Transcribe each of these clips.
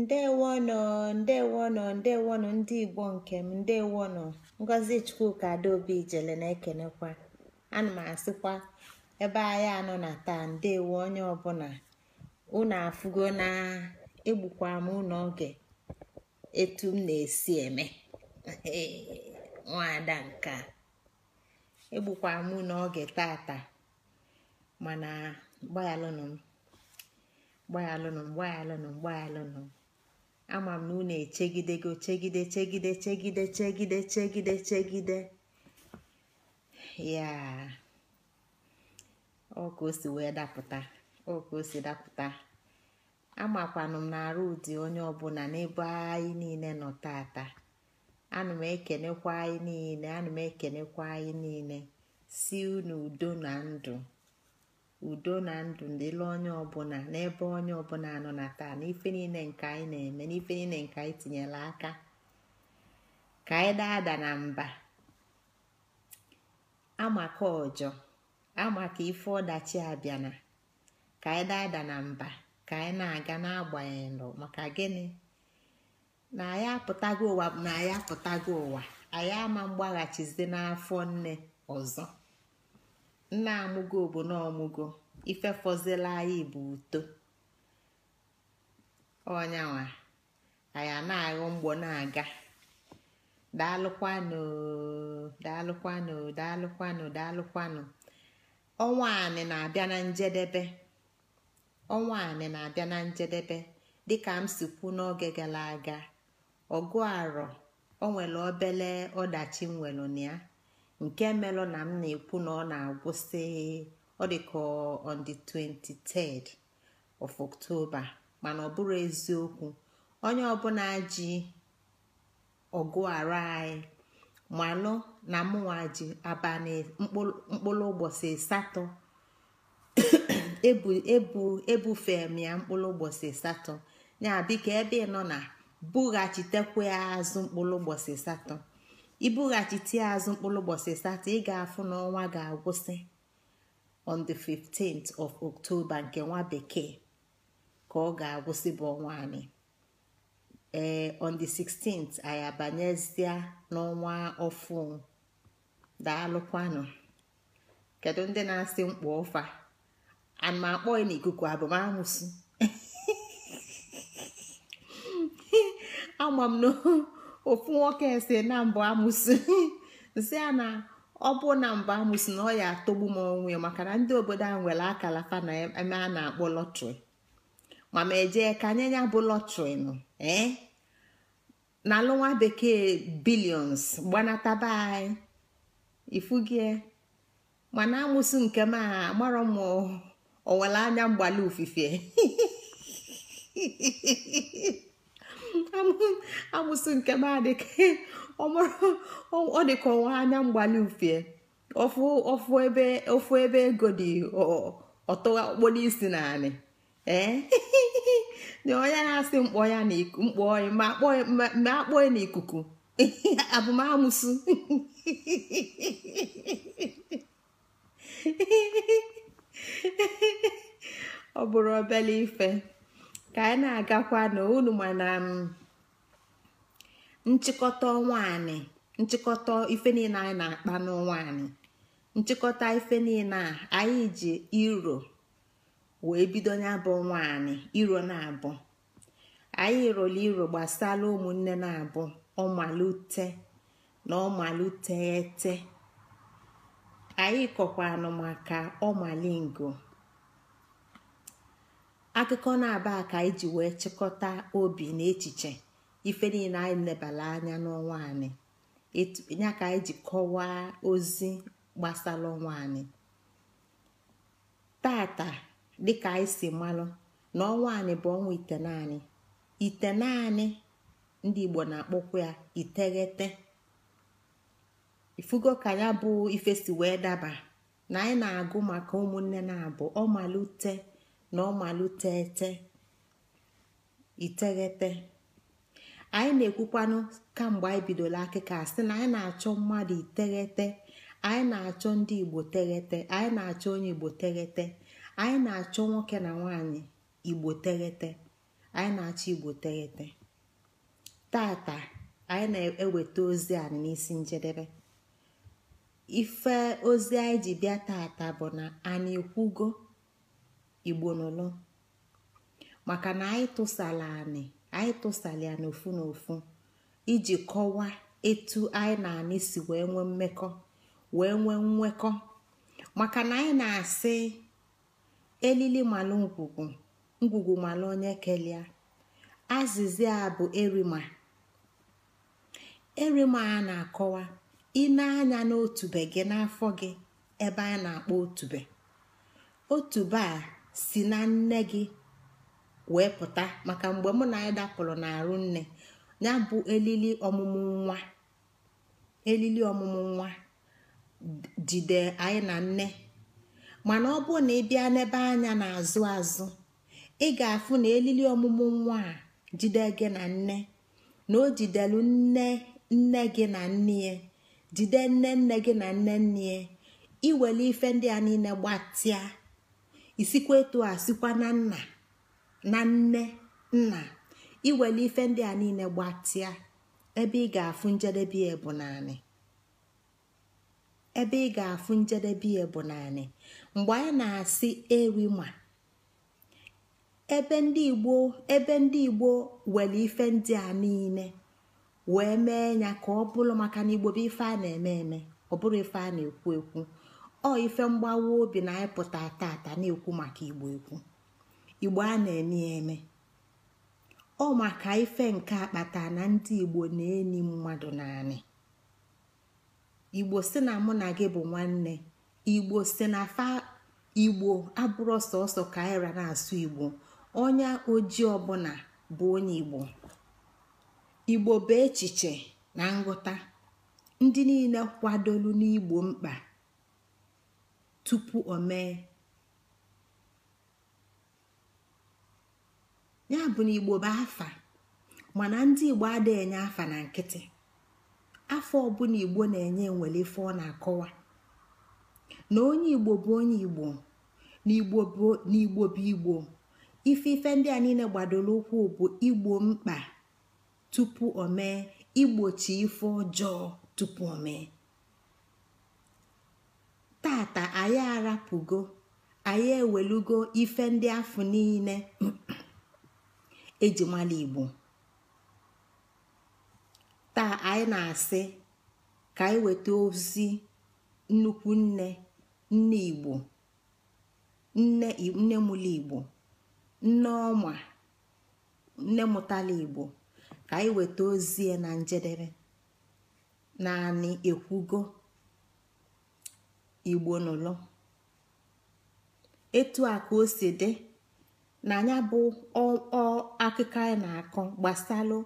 ndewono ndewonụ ndewono ndị igbo nke m ndewonụ ngozi chukwuka adaobi ijele na-ekenekwa ana m asịkwa ebe anyị anọ na taa ndewo onye ọbụla unu afụgo na egbukwa m ụlọ oge etu m na-esi eme nwada nka egbukwa m unu oge tata mana gbaghalụnụ m gbaghalụnụ m gbaghalụnụ m gbaghalụnụ m ama m na unu echegidego chegide chegide chegide chegide chegide chegide ya wee dapụta dapụta amakwanụ m na-arụ ụdị onye ọbụla n'ebe anyị niile nọ tata ana m ekenekwa anyị niile ana m ekenekwa anyị niile si unu udo na ndụ udo na ndụ dịla onye ọbụla n'ebe onye ọbụla nọ na taa n'ife niile nke anyị na-eme n'ife niile nke anyị tinyere aka ka anyị daada na mba amaka ọjọ amaka ife ọdachi abịana ka anyị daada na mba ka anyị na-aga n'agbanyeghị maka gịnị na anyị apụtago ụwa na anyị apụtago ụwa anyị ama mgbaghachizi n'afọ nne ọzọ nna amụgo obodo ọmụgo ifefọzila anyị bụ uto onyanwa anyị na-aghọ mgbọ na-aga daalụkwanụ daalụkwanụ daalụkwanụ daalụkwanụ ọnwa anị na-abịa na njedebe ọnwa anị na-abịa na njedebe dịka m si kwu n'oge gara aga ọgụ arọ o nwere obele ọdachi nwelụ na ya nke melụ na m na-ekwu na ọ na-agwụsị ọ dịka on the 23rd of October mana ọ bụrụ eziokwu onye ọbụla ji ọgụ ara anyị malụ na mụnwa ji abalị mkpụrụ ụbọchị asatọ ebufe m ya mkpụrụ ụbọchị asatọ ya bika ebe ị nọ na bughachitekwe ya azụ mkpụrụ ụbọchị asatọ ibughachite azụ mkpụrụ ụbọchị satọ ị ga-afụ n'ọnwa ga-agwụsị on the 15th of October nke nwa bekee ka ọ ga-agwụsị bụ ọnwa anyị ee eh, on the 16th anyị abanyezie n'ọnwa ọfụ daalụkwanụ kedu ndị na-asị mkpụ ọfa ana m akpọ ya n'ikuku abụmamusu ama m n'ohu ofu nwoke ese na mbụ amụsị nsị ya na ọ bụ na mbụ amụsị na ọ ya atọgbu m onwe maka na ndị obodo ahụ nwere akala fa na eme a na-akpọ lọtrị ma ma eje ka ya bụ lọtrị nọ ee eh? na alụ bekee bilions gbanataba anyị ifugie mana amụsị nke m a m onwere anya mgbali ofufe. amusu nke m adịka ọ dịka ọnwa anya mgbali mfie ofu ebe ego dị ọtụgha okporo isi na anị na onye na-asị mkpọ ya na mkpọ ya ma akpọ ya n'ikuku amusu ọ bụrụ obele ife ka anyị na-agakwa na unu um, mana nchịkọta ọnwa anyị nchịkọta ife niile anyị na-akpa n'ọnwa anyị nchịkọta ife niile anyị ji iro wee bido ya bụ ọnwa anyị iro na-abụ anyị rụrụ iro gbasara ụmụnne na-abụ ọmalute na ọmalutete anyị kọkwanụ maka ọmalingo akụkọ na-aba ka anyị ji wee chịkọta obi na echiche ife niile anyị lebara anya n'ọnwa anyị ya ka anyị ji kọwaa ozi gbasara ọnwa anyị tata dịka anyị si malụ na ọnwa anyị bụ ọnwa ite naanị ndị igbo na-akpọkwa ya iteghete ifugo ka ya bụ ife si wee daba na anyị na-agụ maka ụmụnne na-abụ ọmalite na ọmalụtete iteghete anyị na-ekwukwanụ kamgbe anyị bidoro akịka sị na anyị na-achọ mmadụ iteghete anyị na-achọ ndị igbo teghete anyị na-achọ onye igbo teghete anyị na-achọ nwoke na nwanyị igbo teghete anyị na-achọ igbo teghete tata anyị na-eweta ozi anyị n'isi njedebe ife ozi anyị ji bịa tata bụ na anyị ekwugo igbo nụlụ maka na anyị tụsala anị anyị tụsala ya n'ofu n'ofu iji kọwaa etu anyị na anị si wee nwee mmekọ wee nwee nwekọ maka na anyị na-asị elili malụ ngwugwu ngwugwu malụ onye kelia azịza a bụ erima erima a na-akọwa ine anya n'otube gị n'afọ gị ebe a na-akpọ otube otube a si na nne gị wee pụta maka mgbe mụ na anyị dapụrụ n'arụ nne ya bụ elili ọmụmụ nwa elili ọmụmụ nwa jide anyị na nne mana ọ bụ na ị bịa n'ebe anya na-azụ azụ ị ga-afụ na elili ọmụmụ nwa a jide gị na nne na o jidelu nne nne gị na nne ya jide nne nne gị na nne nne ya iwele ife ndị a niile gbatịa isikwa etu a sikwa na nna na nne nna iwere ife ndị a niile gbatịa ebe ị ga-afụ njedebe ya bụ naanị ebe ị ga njedebe ya bụ naanị mgbe anyị na-asị ma ebe ndị igbo ebe ndị igbo were ife ndị a niile wee mee ya ka ọ bụrụ maka na igbo bụ ife a na-eme eme ọ bụrụ ife a na-ekwu ekwu ọ ife mgbawa obi na anyị pụta tata na-ekwu maka igbo ekwu igbo a na-eme eme ọ maka ife nke akpata na ndị igbo na-eni mmadụ naanị igbo si na mụ na gị bụ nwanne igbo si na fa igbo abụrụ sọsọ kaira na-asụ igbo onye ojii ọbụla bụ onye igbo igbo bụ echiche na nghọta ndị niile kwadolu n'igbo mkpa tupu o ya bụ na igbo bụ afa mana ndị igbo adịghị enye afa na nkịtị afọ ọbụla igbo na-enye nwere ife ọ na-akọwa na onye igbo bụ onye igbo na igbo bụ igbo ife ife ndị a niile gbadoro ụkwụ bụ igbo mkpa tupu omee mee igbochi ife ọjọọ tupu omee. tata anyị arapụgo anyị ewelugo ife ndị afọ niile ejimala igbo taa anyị na-asị ka anyị weta ozi nnukwu nne nne igbo nne nne mụla igbo nne ọma nne mụtala igbo ka anyị weta ozi na njedebe naanị ekwugo igbo nụlọ etu a ka o si dị na anya bụ akụkọ anyị na-akọ gbasalụ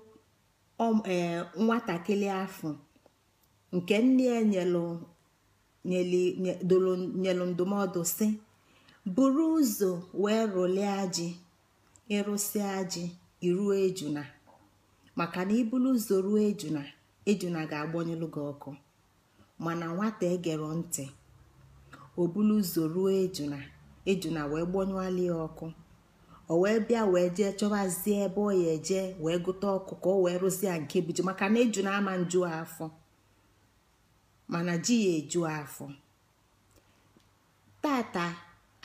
ee nwatakịrị afọ nke nne ya ndụmọdụ si buru ụzọ wee rụlie ji ịrụsịa ji iruo ejuna maka na iburu ụzọ ruo ejuna ejuna ga-agbanyelụ gị ọkụ mana nwata egere ntị o bulu ụzọ ruo ejuna ejuna wee gbọnyụali ya ọkụ o wee bịa wee jee chọbazie ebe ọ ya eje wee gụta ọkụ ka o wee rụzie nke biju maka na ejuna ama nju afọ mana ji ya eju afọ tata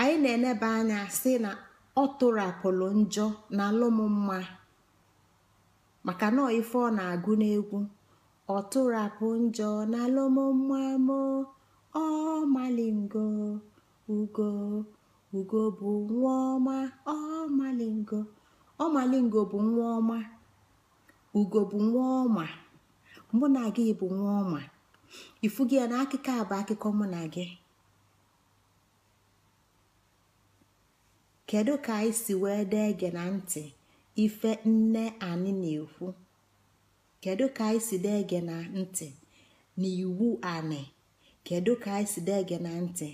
anyị na-eneba anya si na ọ tụrapụrụ njọ na maka na ife ọ na-agụ n'egwu ọ tụrapụ njọ na alụmma Malingo ugo ugo bụ nwa ọma ọmalingo Malingo bụ nwa ọma ugo bụ nwa ọma mụ na gị bụ nwa ọma ifu gị ya na akụkọ a bụ akụkọ mụ na gị kedu ka anyị si wee dee gị na ntị ife nne anyị na-ekwu kedu ka anyị si dee gị na ntị na iwu anyị kedu ka anyị si dege na ntị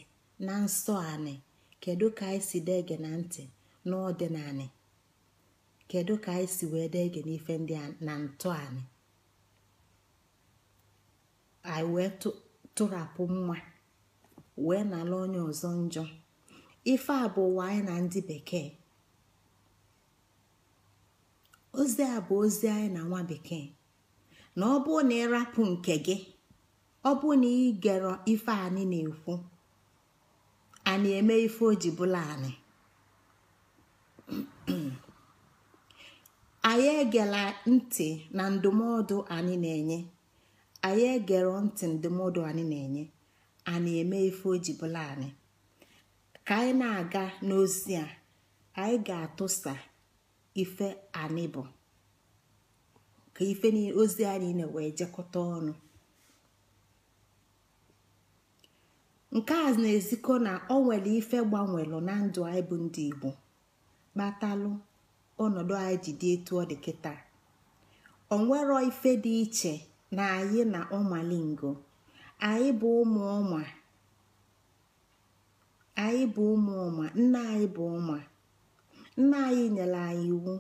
na nsọ anị kedu ka anyị si dege na ntị n'ọdịnanị kedu ka anyị si wee dege n'ife ndị a na ntọ anyị anyị wee tụrapụ mma wee nala onye ọzọ njọ ife a bụ ụwa anyị na ndị bekee ozi a bụ ozi anyị na nwa bekee na ọ bụrụ na ịrapụ nke gị ọ bụ na ị gero ife anyị na-ekwu anyị eme ife o ji bụla anyị anyị egela ntị na ndụmọdụ anyị na-enye anyị egero ntị ndụmọdụ anyị na-enye anyị eme ife o ji bụla anyị ka anyị na-aga n'ozi a anyị ga-atụsa ife anyị bụ ka ife ozi anyị na-wee jekọta ọnụ nke a na-ezikọ na ọ nwere ife gbanwere na ndụ anyị bụ ndị igbo kpatalụ ọnọdụ anyị ji dị etu ọ dị kịta nwere ife dị iche na anyị na ọmalingo anyị bụ ụmụ ọma anyị bụ ụmụ ọma nna anyị bụ ọma nna anyị nyere anyị iwu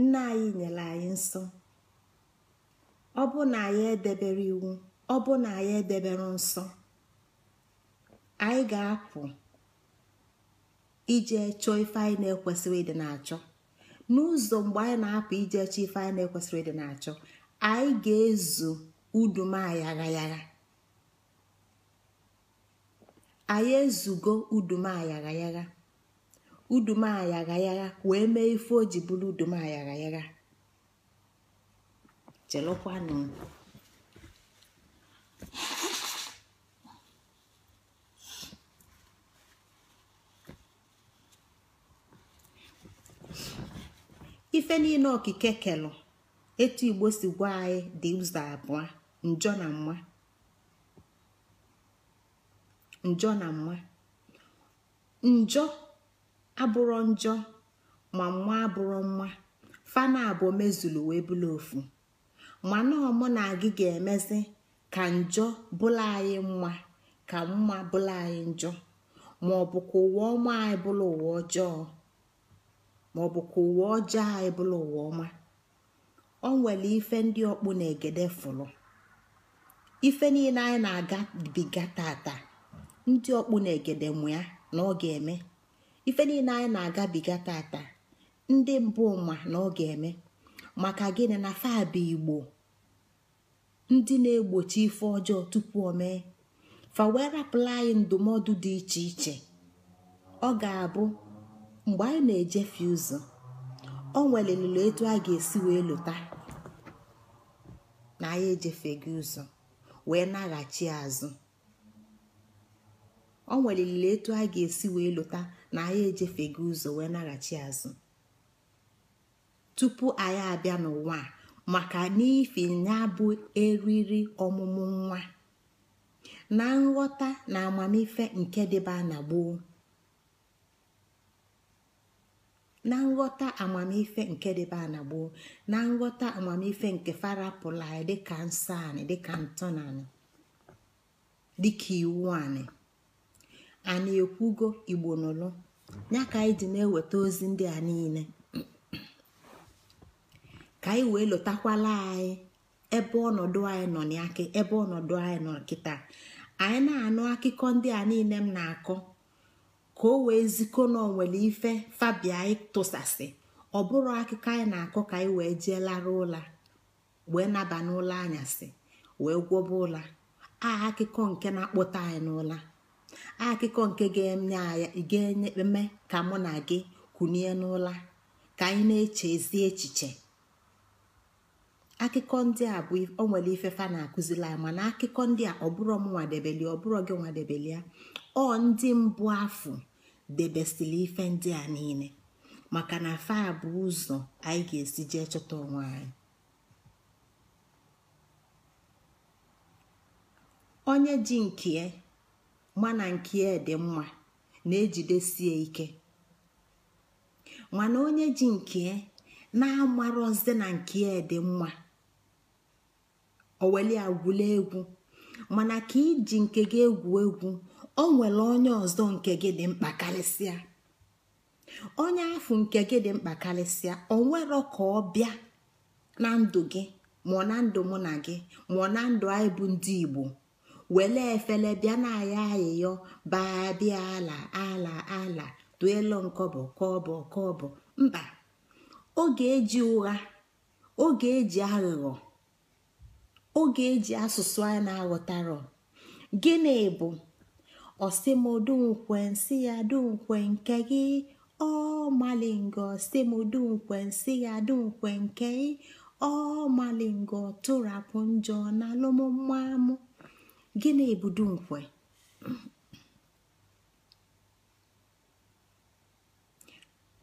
nna anyị nyere anyị nsọ ọ bụ na anyị edebere iwu ọ bụ na anyị edebere nsọ anyị ga-apụ ije chọọ ife anyị na-ekwesịrị ịdị na-achọ n'ụzọ mgbe anyị na-apụ ije chọọ ife anyị na-ekwesịrị ịdị na-achọ anyị ga-ezo udumayaghayagha anyị ezugo udumayaghayagha udumayaghayagha wee mee ife o ji bụrụ udumayaghayagha chelụkwanụ ife niile okike kelụ etu igbo si gwa anyị dị ụzọ abụọ njọ na mma njọ na mma njọ abụrọ njọ ma mma abụrọ mma fana abụọ mezulu wee bụla ofu mana ọmụ na agị ga-emezi ka njọ bụla anyị mma ka mma bụla anyị njọ ma ọ bụ ka ụwa ọma anyị bụla ụwa ọjọọ Ma ọ bụ ka ụwa ọjọọ anyị bụrụ ụwa ọma ọ nwere ife ndị ọkpụ na egede fụlụ ife niile anyị na-agabiga tata ndị ọkpụ na egede mụ na ọ ga-eme ife niile anyị na-agabiga tata ndị mbụ ma na ọ ga-eme maka gịnị na fabụ igbo ndị na-egbochi ife ọjọọ tupu o mee fa wee rapụla anyị ndụmọdụ dị iche iche ọ ga-abụ mgbe anyị na-ejefe ụzọ o nwelelilo etu a ga-esi wee lụta na anyị ejefeghị ụzọ wee naghachi azụ o etu a ga-esi wee lụta na anyị ejefeghị ụzọ wee naghachi azụ tupu anyị abịa n'ụwa maka n'ifi ya bụ eriri ọmụmụ nwa na nghọta na amamife nke dịba na gboo na nghọta amamife nke dịbe na nghọta amamife nke fara anyị dịka nsọ anyị dịka ntọna dịka iwu anyị anyị ekwugo igbo nụlụ ya ka anyị ji na-eweta ozi ndị a niile ka anyị wee lụtakwala anyị ebe ọnọdụ anyị nọ n'aka ebe ọnọdụ anyị nọ nkịta anyị na-anụ akụkọ ndị a niile m na-akọ ka o wee ziko na nwere ife fabia tụsasị ọ bụrụ akụkọ anyị na-akọ ka anyị wee jee lara ụla wee naba n'ụlọ anyasị wee gwọba ụla a akụkọ nke na-akpọta anyị n'ụla akụkọ nke ga-enye eme ka mụ na gị kunie n'ụla ka anyị na-eche ezi echiche akụkọ ndị a bụ o nwere ife fa na-akụzila ya mana akụkọ ndị a bụrọ m nwadebeli bụrọ gị nwadebelia ọ ndị mbụ afọ debesili ife ndị a niile maka na fa bụ ụzọ anyị ga-esi jee chọta onwe anyị onye ji nkie mana nkie dị mma na-ejidesie ike mana onye ji nkie na-amarọzi na nkie dị mma oweli agwụla egwu mana ka iji nke gị egwu egwu o nwere onye ọzọ nke gị dị mkpa karịsịa onye afụ nke gị dị mkpa karịsịa o nwero ka ọ bịa na ndụ gị mụọ na ndụ mụ na gị mụọ na ndụ anyị bụ ndị igbo were efele bịa na aya ayịyọ baa bịa ala ala ala duelu nkọbọ kọbọ kọbọ mba oge eji ụgha oge eji aghụghọ oge e eji asụsụ a na-aghọtarọ gịnị bụ nsị ya dunkwe nke gị ọ malingo nsị ya dunkwe nke gị ọ malingo tụrapụ njọ na alụmmamụ gịnị bụ dunkwe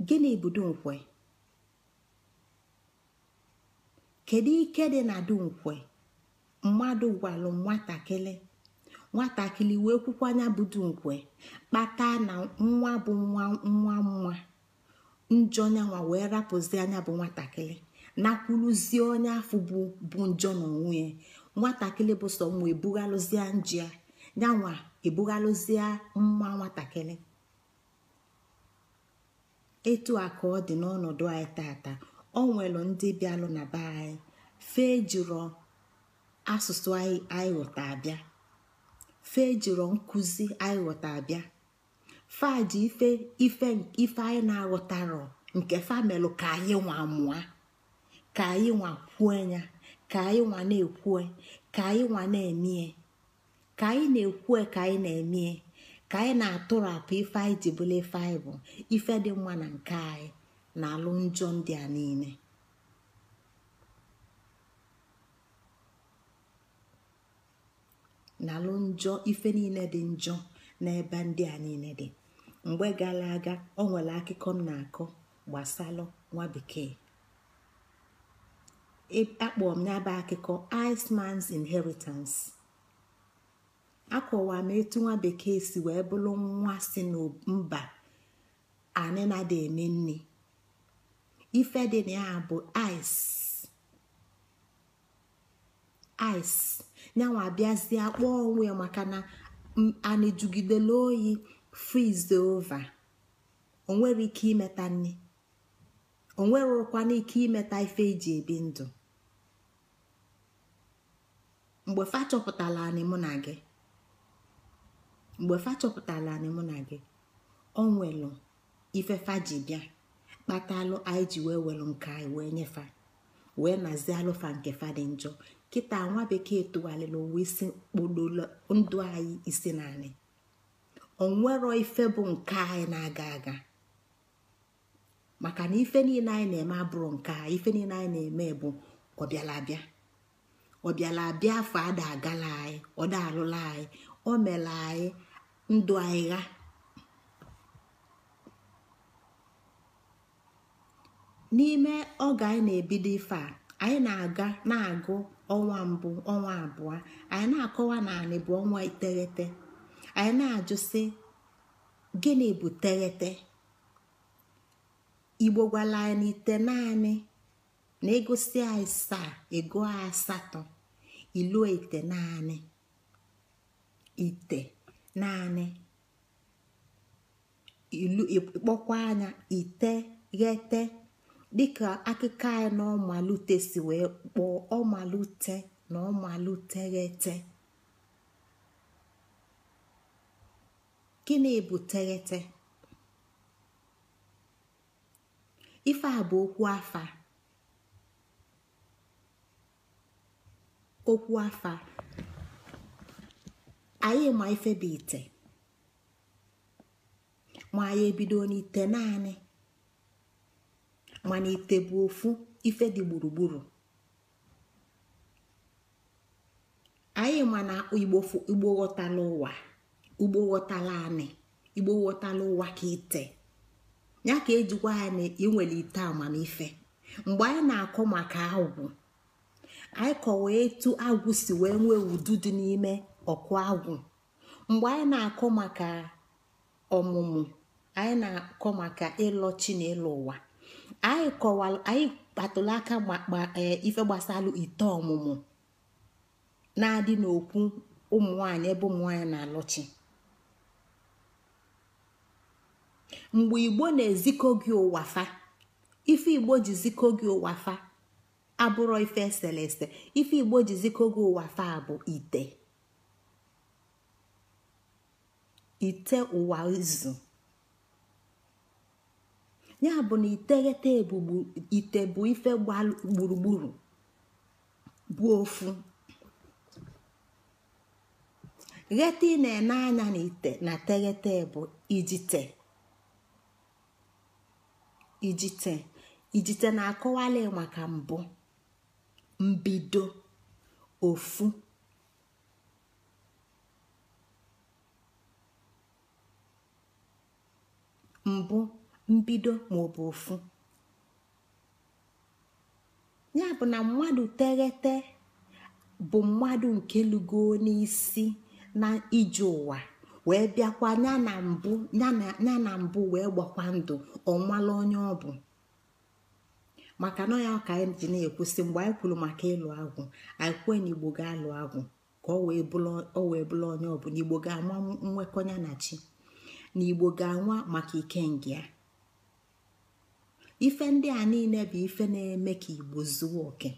gịnị bụ dunkwe kedu ike dị na dunkwe mmadụ gwalụ nwatakịrị nwatakịrị wee kwukwanya budu nkwe kpata na nwa bụ nwa nwa nwa njọ nyanwa wee rapụzi anya bụ nwatakịrị nakwuluzie onye afọ bụ bụ njọ n'onwe ya nwatakịrị bụ sọ mma ebughalụzie njia nyanwa ebughalụzie nwa nwatakịrị etu a ka ọ dị n'ọnọdụ anyị tata ọ nwere ndị bịalụ na be anyị fee jụrụ asụsụ anyị ghọta abịa fe jiri nkụzi anyị ghọta abịa faji ife ife ife anyị na-aghọtarọ nke famelụ ka anyị nwa mụa ka anyị nwa kwue ya ka anyị nwa na-ekwue ka anyị nwa na-emie ka anyị na-ekwue ka anyị na-emie ka anyị na-atụrapụ ife anyị ji bụla ife anyị bụ ife dị mma na nke anyị na alụ njọ ndị a niile na alụ njọ ife niile dị njọ n'ebe ndị a niile dị mgbe gara aga ọ nwere akụkọ m na-akọ gbasalụ nwa bekee e, akpọrọ m n'aba akụkọ Iceman's Inheritance akọwa m etu nwa bekee si wee bụrụ nwa si mba anị na-ada eme nne ife dị na ya bụ ice ice nyanwa abịazie kpọọ onwe maka na ana oyi frize ova onwere ike imeta nne onwerokwana ike imeta ife eji ebi ndụ mgbe fa chọpụtala anyị mụ na gị mgbe fa anyị mụ ife fa ji bịa kpatalụ anyị ji wee welu nke anyị wee nye wee nazie alụfa nke fa dị njọ kịta nwa bekee tụgharịla ụwa isi kpololo ndụ anyị isi naanị onwero ife bụ nke anyị na-aga aga maka na ife niile anyị na-eme abụrụ nke a ife niile anyị na-eme bụ ọbịalabịa ọbịalabịa afọ ada agala anyị ọda alụla anyị o mela anyị ndụ anyị gha n'ime oge anyị na-ebido ife a anyị na-aga na-agụ ọnwa mbụ ọnwa abụọ anyị na-akọwa na bụ ọnwa iteghete anyị na ajụsị gịnị bụ teghete igbo gwala anyị n'ite naanị na egosi anyị saa ego asatọ ilu ite naanị ite naanị ilu ịkpọkwa anya iteghete dịka akụkọ anyị na ọmalute si wee kpọọ ọmalute na ọmaluteghete gịnị bụ teghete ife a bụ okwu afa okwu afa anyị ma ife bụ ite ma anyị ebido n'ite naanị mana ite bụ ofu ife dị gburugburu anyị mana igbo ghọtala ụwa ugbo ghọtala anị igbo ụwa ka ite ya ka ejikwa anyị inwere ite amamife mgbe anyị na-akọ maka agwụ anyị kọwa etu agwụ si wee nwee udu dị n'ime ọkụ agwụ mgbe anyị na-akọ maka ọmụmụ anyị na-akọ maka ịlọ chi ụwa anyị kọwalụ anyị aka e, ife gbasalụ ite ọmụmụ na-adị n'okwu ụmụ nwanyị ebe ụmụ nwanyị na-alọchi mgbe igbo na-ezikọ gị ụwa ife igbo ji zikọ gị ụwa abụrọ ife eselese ife igbo ji zikọ gị ụwa bụ ite ite ụwa izu ya bụ na iteghete ite bụ ife gburugburu bụ ofu ghete ị na-ene anya na ite na teghete bụ ijite ijite ijite na-akọwali maka mbụ mbido ofu mbụ mbido ma ọ bụ ofu ya bụ na mmadụ teghete bụ mmadụ nke lugo n'isi na ije ụwa wee bịakwa ya na mbụ wee gbakwa ndụ ọnwala onye ọ bụ maka na ya ka anyị ji na-ekwusi mgbe anyị kwuru maka ịlụ agwụ anyị kwuo na igbo ga-alụ agwụ ka ọ wee bụla onye ọ bụ na igbo ga-ama nwekọnya na chi na igbo ga-anwa maka ike ikenga ife ndị a niile bụ ife na-eme ka igbo zuo oke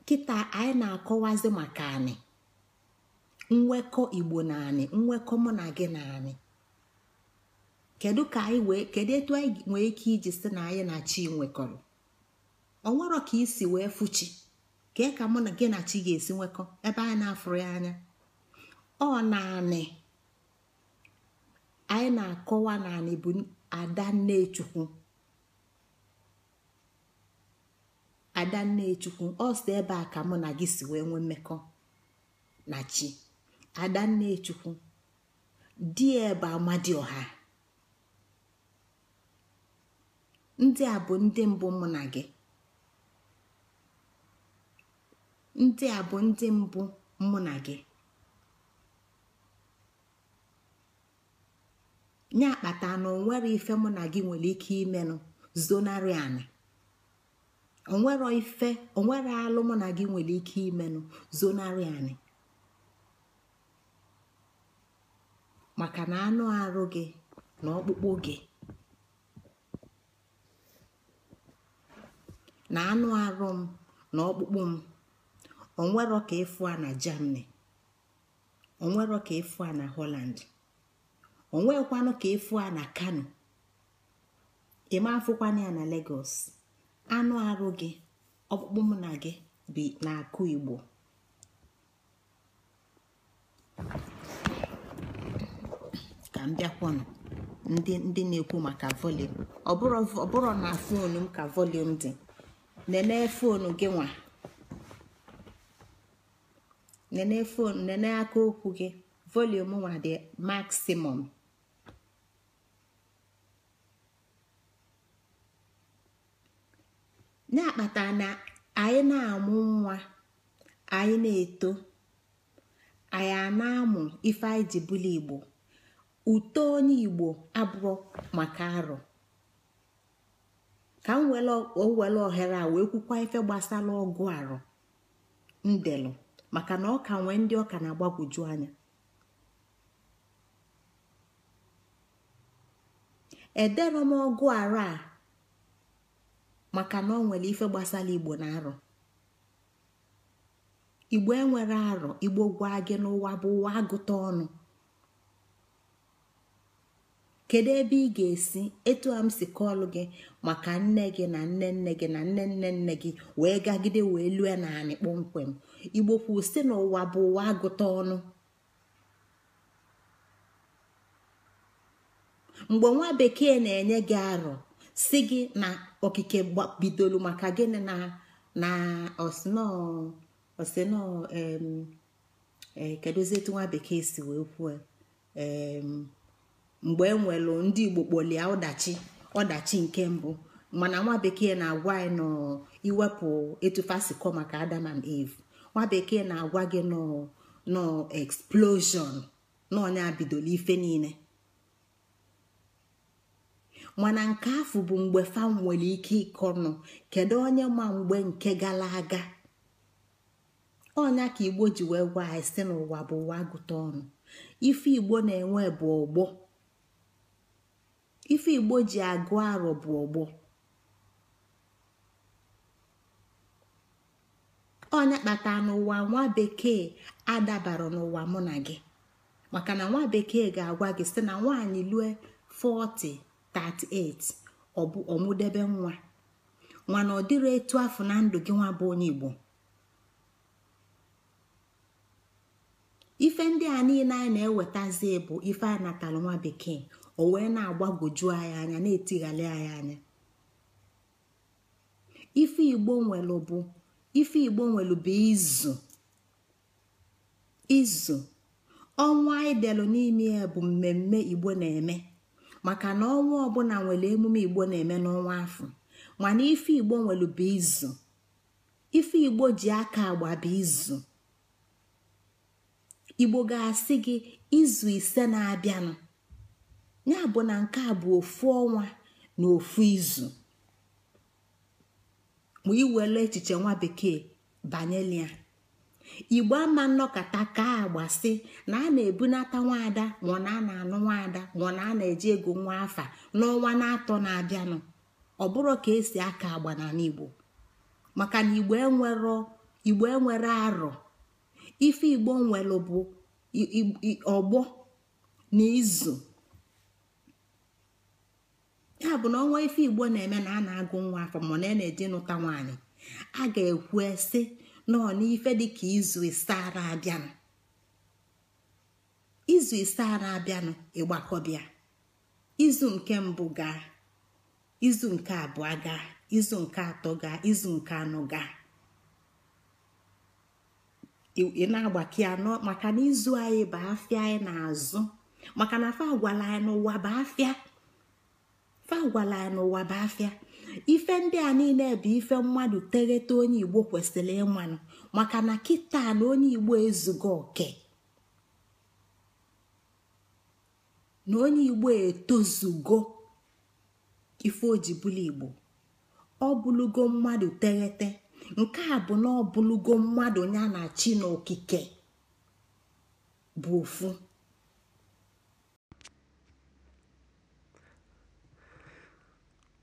nkịta anyị na-akọwazi maka anyị nwekọ igbo na anyị nwekọ mụ na gị na anyị kedu ka anyị wee kedu etu anyị nwee ike iji si na anyị na chi nwekọrọ onwero ka isi wee fuchi kee ka mụ na gị na chi ga-esi nwekọ ebe anyị na-afụrụ ya anya ọ naanị anyị na-akọwa anyị bụ ada nne chukwu ada ọ sị ebe a ka mụ na gị si wee nwee mmekọ na chi adannechukwu di ya bụ amadioha ndị a bụ ndị mbụ mụ gị ndị a bụ ndị mbụ mụ na gị nye akpata na onwere ife mụ na gị nwere ike imenụ zonari anị onwero ife onwere alụ mụ na gị nwere ike imenụ zonarị anyị maka na anụ arụ gị na ọkpụkpụ gị na anụ arụ m na ọkpụkpụ m onwere ka ịfụ a na germany onwere ka ịfụ a na holland onwekwanụ ka ịfụ a na kano ị ma afụkwana ya na lagos anụ arụ gị ọkpụkpụ mụ na gị bi n'akụ igbo ka m bịakwanụ ndị ndị na-ekwu maka ọ bụrụ na fonu m ka volum dị nene fonu gị nwa nene fonu nene aka okwu gị volum nwa dị maximum na-akpata na anyị na-amụ nwa anyị na-eto anyị a na-amụ ife anyị ji bụla igbo uto onye igbo abụọ maka arọ ka m were ohere a wee kwukwa ife gbasara ọgụ arụ ndelụ maka na ọ ka nwee ndị ọka na-agbagwoju anya edere m ọgụ arụ a maka na ọ nwere ife gbasara igbo na arọ igbo enwere arọ igbo gwa gị n'ụwa bụ ụwa agụta ọnụ kedu ebe ị ga-esi etu a m si kọlụ gị maka nne gị na nne nne gị na nne nne nne gị wee gagide wee lue naanị kpọmkwem igbo kwụsị si n'ụwa bụ ụwa agụta ọnụ mgbe nwa bekee na-enye gị arọ si gị na okike bidoro maka gịnị na na osino eh, kedụzietu nwa bekee si wee kwuo mgbe e nwelụ ndị igbo kpọlie ọdachi ọdachi nke mbụ mana nwa bekee na-agwa anyị nọ iwepụ kọ maka adam and eve nwa bekee na-agwa gị nọ nọ explosion n'ọnya bidoro ife niile mana nke afọ bụ mgbe fam nwere ike ịkọ nọ kedu onye ma mgbe nke gara aga ọnya ka igbo ji wee gwa anyị si n'ụwa bụ ụwa gụta ọnụ ife igbo na-enwe bụ ọgbọ ife igbo ji agụ arọ bụ ọgbọ onye kpata n'ụwa nwa bekee adabara n'ụwa mụ na gị maka na nwa bekee ga-agwa gị sị na nwaanyị lue 40 38 ọ bụ ọmụdebe nwa nwana ọ dịrị etu afọ na ndụ gị nwa bụ onye Igbo ife ndị a niile anyị na-ewetazi bụ ife a natara nwa bekee o wee na-agbagwoju anyị anya na etighali anyị anya ife igbo nwelu bụ ife igbo nwelu bụ izu izu ọnwa idelu n'ime ya bụ mmemme igbo na-eme maka na ọnwa ọbụla nwere emume igbo na-eme n'ọnwa afọ mana ife igbo nwere bụ izu ife igbo ji aka agba bụ izu igbo ga-asị gị izu ise na-abịanụ ya bụ na nke a bụ ofu ọnwa na ofu izu ma iwere echiche nwa bekee banyelia igbo ama nnọkọta ka si na a na-ebunata nwaada ma na a na-anụ nwaada ma na a na-eji ego nwa afa n'ọnwa na-atọ na-abịanụ ọ bụrụ ka esi aka agba na igbo maka na igbo igbo enwere arọ ife igbo nwere bụ ọgbọ na izu ya bụ na ọnwa ife igbo na-eme na a na-agụ nwa afọ ma na a na-eji nụta nwaanyị a ga-ekwu esi nọ n'ife dịka izu ara abịanụ izu ara abịanụ ịgbakọbịa izu nke mbụ gaa izu nke abụọ gaa izu nke atọ gaa izu nke anọ gaa ị na-agbake anọ maka na izu anyị bụ afịa anyị na-azụ maka na fa agwala anyị n'ụwa bụ afịa fa anyị n'ụwa bụ afịa ife ndị a niile bụ ife mmadụ tereta onye igbo kwesịrị ịmanụ maka na kịta na onye igbo ezugo oke na onye igbo etozugo ife ojibụla igbo ọ bụlugo mmadụ teghete nke a bụ na ọ bụlugo mmadụ ya na chi na okike bụ ofu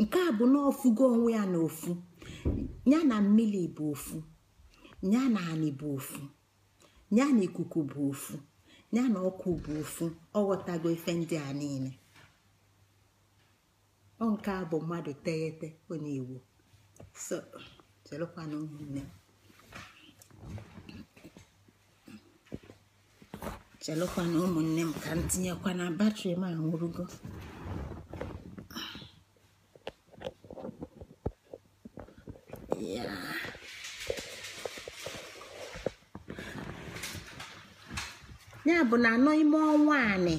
nke a bụ na ofugo onwe ya na ofu ya na mmiri bụ ofu ya na anị bụ ofu ya na ikuku bụ ofu ya na ọkụ bụ ofu ọ ghọtago ife ndị a niile ọ nke a bụ mmadụ teghete ọ na-ewu so chelụkwanụ ụmụnne m chelụkwana ụmụnne m ka m tinyekwa na batrị m anwụrụgo ya ya bụ na anọ ime ọnwa anị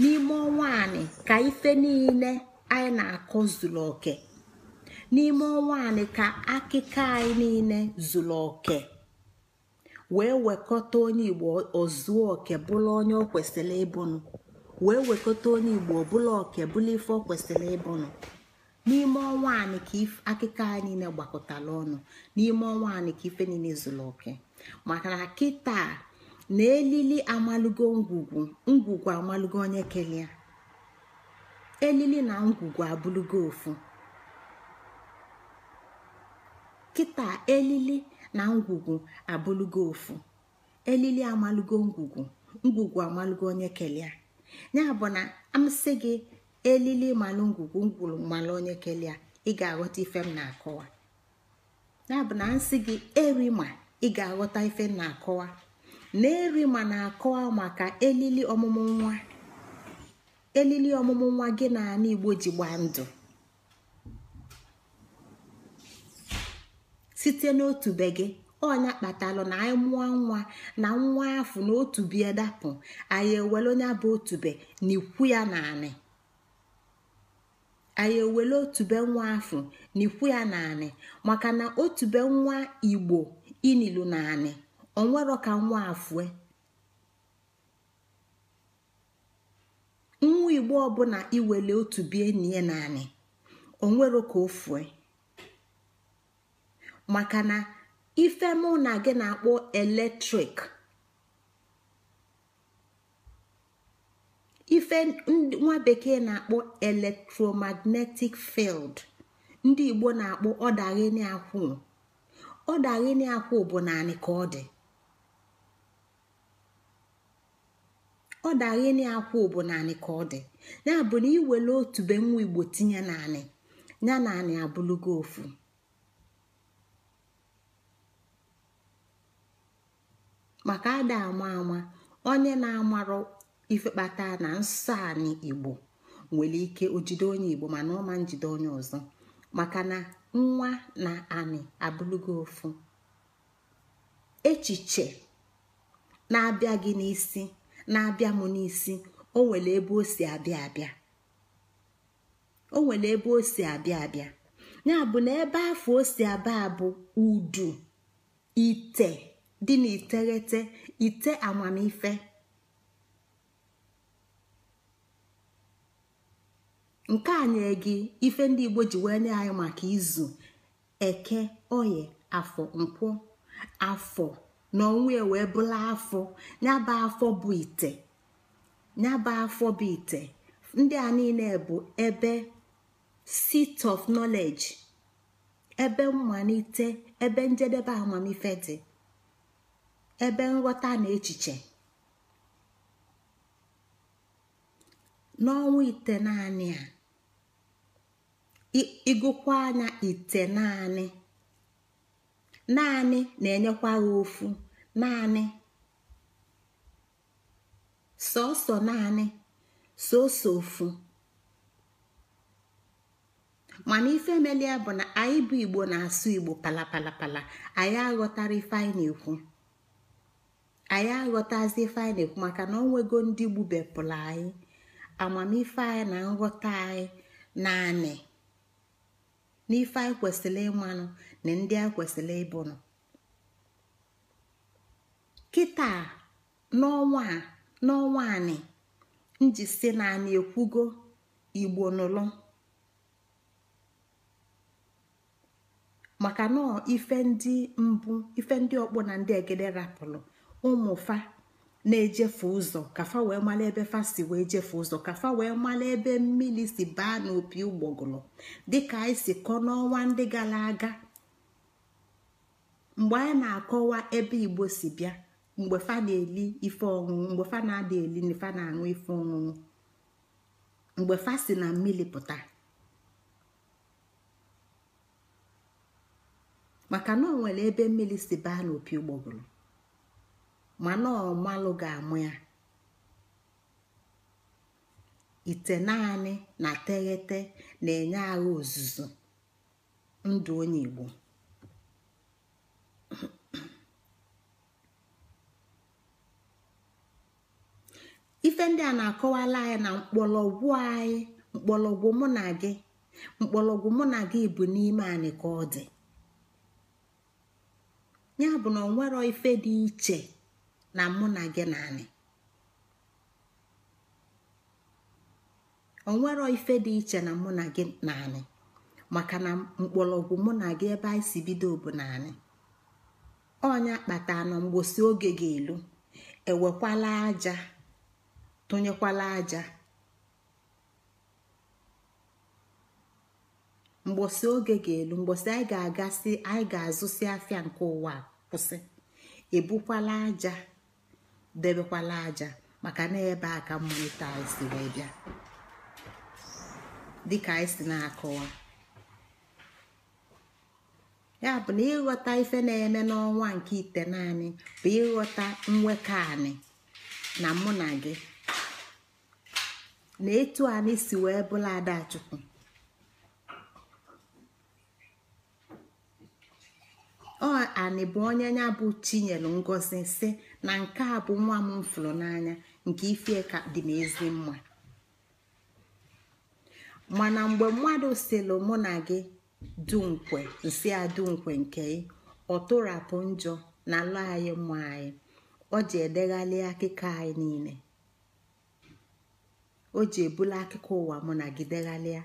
n'ime ọnwa anị ka ife niile anyị na akụ zuru oke n'ime ọnwa anị ka akịka anyị niile zuru oke wee wekọta onye igbo ozuo oke bụla onye ọ kwesịrị ịbụnụ wee wekọta onye igbo bụlụ oke bụlụ ife ọ kwesịrị ịbụnụ n'ime ọnwa anyị ka akụkọ anyị niile gbakọtara ọnụ n'ime ọnwa anyị ka ife niile zụrụ oke maka na kịta na elili amalụgo ngwugwu ngwugwu amalụgo onye kelee elili na ngwugwu abụlụgo ofu kịta elili na ngwugwu abụlugo ofu elili amalụgo ngwugwu ngwugwu amalụgo onye kelee ya bụ na amsị gị elili malụ ngwugwu ngwuru malụ onye kelee ị ga-aghọta ife m na-akọwa ya bụ na nsị gị erima ị ga-aghọta ife m na-akọwa na erima na-akọwa maka elili ọmụmụ nwa elili ọmụmụ nwa gị na ala igbo ji gbaa ndụ site n'otu be gị ọnya kpatalụ na anyị mụọ nwa na nwa afọ na otu bie dapụ anyị ewele onye bụ otube n'ikwu ya na anyị otube nwa afọ n'ikwu ya na maka na otube nwa igbo inilu na anị onwero ka nwa afụe nwa igbo ọbụla iwele otubie nie na anị onwero ka o maka na ife mụ na gị na-akpọ eletrik ife nwa bekee na-akpọ electromagnetic field ndị igbo na-akpọ ọdaghịnị akwụ ọdaghịnị akwụ bụ naanị ka ọ dị ọdaghịnị akwụ bụ naanị ka ọ dị ya bụ na iwere otu be nwa igbo tinye naanị ya naanị abụlụgo ofu maka ada ama ama onye na-amarụ ife na nsọ anyị igbo nwere ike ojide onye igbo mana ọma njide onye ọzọ maka na nwa na anị abụlụgo ofu echiche na-abịa gị n'isi na-abịa m n'isi o nwere ebe o si abịa abịa o ya bụ na ebe afọ o si abịa bụ udu ite dị na iteghete ite amamife nke a na gị ife ndị igbo ji wee nye anyị maka izu eke oye afọ nkwụ afọ na ọnwa wee bụla afọ nyaba afọ bụ ite nyaba afọ bụ ite ndị a niile bụ ebe seat of knowledge ebe mmalite ebe njedebe amamife dị ebe nghọta na echiche n'ọnwa ite naanị a ịgụkwa anya ite naanị naanị na-enyekwa ha ofu naanị sọsọ naanị sọsọ ofu mana ife melia bụ na anyị bụ igbo na-asụ igbo palapalapala anyị aghọtara ife anyị na-ekwu anyị aghọtazi ife anyị na-ekwu maka na onwego ndị gbubepụrụ anyị amamife anyị na nghọta anyị naanị n'ife anyị kwesịrị ịmanụ na ndị a kwesịrị ịbụnụ kịta n'ọnwa n'ọnwa anị nji si na anyị ekwugo igbo nụlụ maka na ife ndị mbụ ife ndị ọkpụ na ndị egede rapụrụ ụmụfa na-ejefe ụzọ kafa wee mala ebe fa si wee jefe ụzọ kafa wee mala ebe mmiri si baa n'opi ụgbọgụrụ dịka anyị si kọ n'ọnwa ndị gara aga mgbe anyị na-akọwa ebe igbo si bịa mgbe fa na-eli ife ọṅụṅụ mgbe fa na-ada eli na fa na-aṅụ ife ọṅụṅụ mgbe fa si na mmiri pụta maka na ọ nwere ebe mmiri si baa n'opi ụgbọgụrụ mana ọmalụ ga-amụ ya ite naanị na teghete na-enye agha ozuzo ndụ onye igbo ife ndị a na-akọwala anyị na mkpọlọgwụ anyị mkpọlọgwụ mụ na gị mkpọlọgwụ mụ na gị bụ n'ime anyị ka ọ dị ya bụ na ọ nwere ife dị iche na mụ na gị na anyị onwero ife dị iche na mụ na gị na maka na mkpọrọgwụ mụ na gị ebe anyị si bido bụ naanị anyị ọnya kpata na mgbosi oge ga-elu ewekwala aja tụnyekwala aja mgbosi oge ga-elu mgbosi anyị ga-agasị anyị ga-azụsi afịa nke ụwa kwụsị ebukwala aja debekwala aja maka na ebe a ka mmụta anyị si wee bịa dịka anyị na-akọwa ya bụ na ịghọta ife na-eme n'ọnwa nke ite naanị bụ ịghọta nwekọ anị na mụ na gị na etu anyị si wee bụla adachukwu ọ anị bụ onye nya bụ chinyelu ngozi si na nke a bụ nwa m mfụrụ n'anya nke ife dị n'ezi mma mana mgbe mmadụ sịlụ mụ na gị dunkwe nsị adunkwe nke ọ tụrapụ njọ na lụ anyị mma anyị ọ ji edeghalị akụkọ anyị niile o ji ebula akụkọ ụwa mụ na gị deghalịa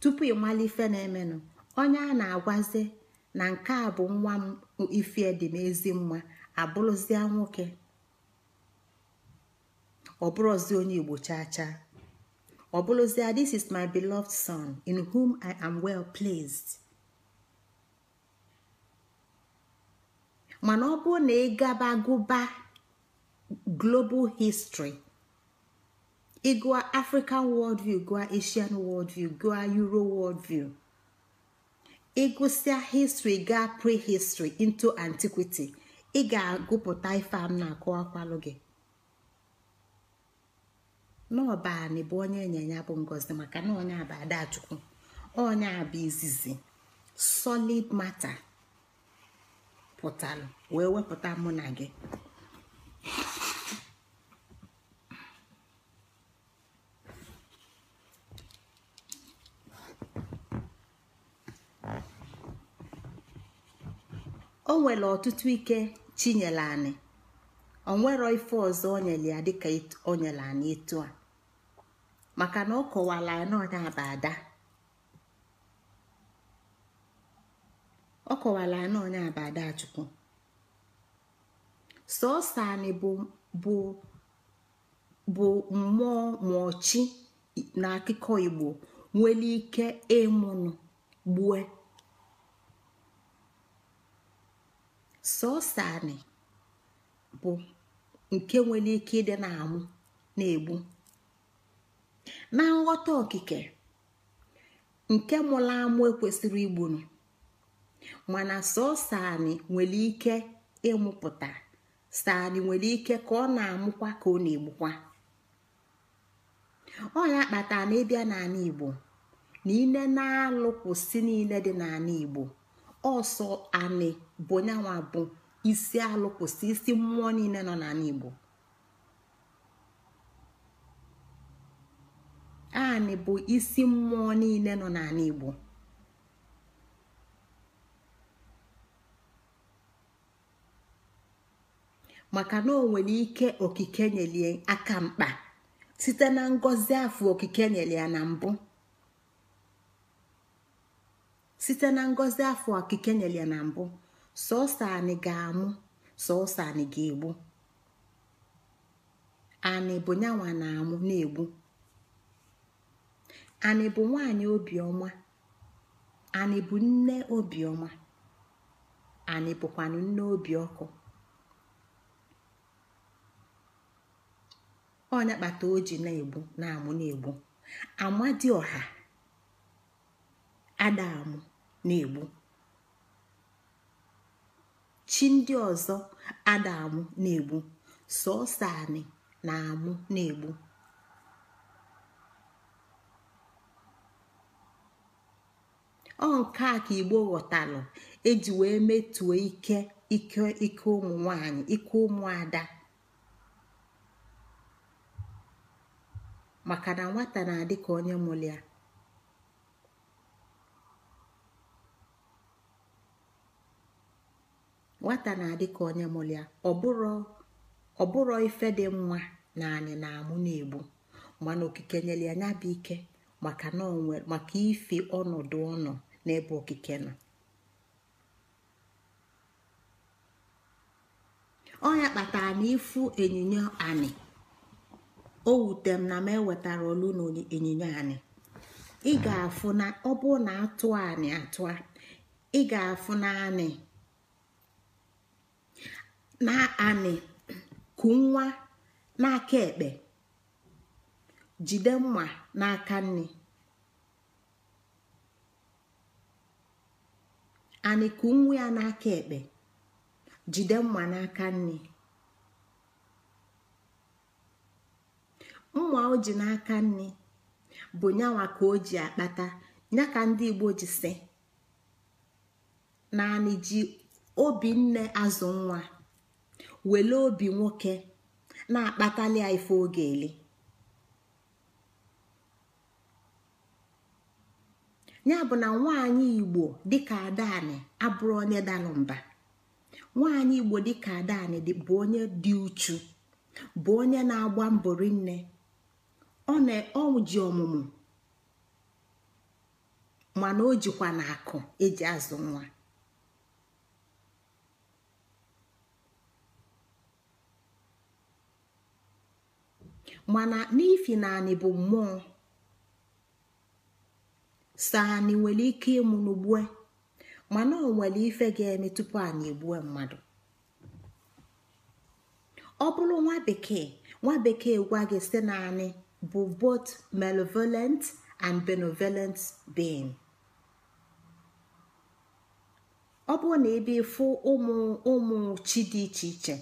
tupu ịmala ife na-emenụ onye a na-agwazi na nke a bụ nwa m ife dị n'ezi ezi mma abụrụzịa nwoke ọ bụrụzi onye igbo chaa chaa ọ bụrụzịa this is my beloved son in whom i am well placed mana ọ bụrụ na ị gaba gụba global history ịgụa african world view, gụa asian world view, gụa euro world worldview ịgụsịa history gaa prehistory into antiquity ị ga-agụpụta ife a m na-akọwakwalụ gị n'ọbani bụ onye ịnyịnya bụ ngozi maka na onye bụ adachukwu onye bụ izizi solid mata pụtara wee wepụta mụ na gị o nwere ọtụtụ ike chi anyị ọ nwere ife ọzọ o nyere ya dịka o nyere anị etu a maka na ọ kọwara anyị n'ọnya bụ ada ọ kọwara ya n'ọnya bụ ada chukwu sọọsọ anyị bụ bụ mụọ chi nwụọchi na akụkọ igbo nwere ike ịmụnụ gbue sọsọ bụ nke nwere ike ịdị na-amụ na-egbu na nghọta okike nke mụrụ amụ ekwesịrị igburu mana sọsọ nwere ike ịmụpụta sani nwere ike ka ọ na-amụkwa ka ọ na-egbukwa ọ ya kpatara na ịbịa n'ala igbo na ile na-alụ kwụsị niile dị n'ala igbo ọsọ anị bụ nyanwa bụ isi alụ kwụsị isi mmụọ niile nọ n'ala igbo anị bụ isi mmụọ niile nọ n'ala igbo maka na o nwere ike okike nyelie aka mkpa site na ngọzi afọ okike nyelie na mbụ site na ngọzi afọ okike nyere ya na mbụ sọsọ anyị ga-amụ sọsọ anyị ga-egbu anị bụ nyanwa na-amụ na-egbu anị bụ nwanyị obiọma anị bụ nne obiọma anị bụkwanụ nne obi ọkụ ọnya kpata o ji na-egbu na-amụ na-egbu ọha ada amụ na-egbu chi ndị ọzọ ada amụ na-egbu sọsọ anị na-amụ na-egbu ọ nke a ka igbo ghọtalụ eji wee metuo ike ike ike ụmụ nwanyị ike ụmụada maka na nwata na-adị ka onye mụrụ nwata na-adị ka onye mụrụ ya ọ bụrụ ife dị mma na anyị na-amụ na-egbu mana okike nyere ya bụ ike maka maka ife ọnọdụ ọnọ n'ebe okike nọ ya kpatara na ịfụ ịnyịnya anị o wute m na m ewetara olu na ịnyịnya anị ị afụ na ọ bụrụ na atụ anị atụ ị afụ na anị na anị ku nwa n'aka ekpe jide mma n'aka nne anị nwa ya n'aka ekpe jide mma n'aka nne mma o ji n'aka nne bụ nyanwa ka o ji akpata ya ka ndị igbo ji si naanị ji obinne azụ nwa wele obi nwoke na-akpatali ya ife oge eli ya bụ na nwaanyị igbo dịka adani abụrụ onye da mba nwaanyị igbo dịka adani bụ onye dị uchu bụ onye na-agba mbọ rinne ọ ji ọmụmụ mana o jikwa na akụ eji azụ nwa mana n'ifi naanị bụ mmụọ saanị nwere ike ịmụ n'ugbue mana ọ nwere ife ga-eme tupu anyị egbue mmadụ ọ bụrụ nwa bekee nwa bekee gwa gị site naanị bụ both malevolent and benevolent being ọ bụrụ na ebe ịfụ ụmụ ụmụ chi dị iche iche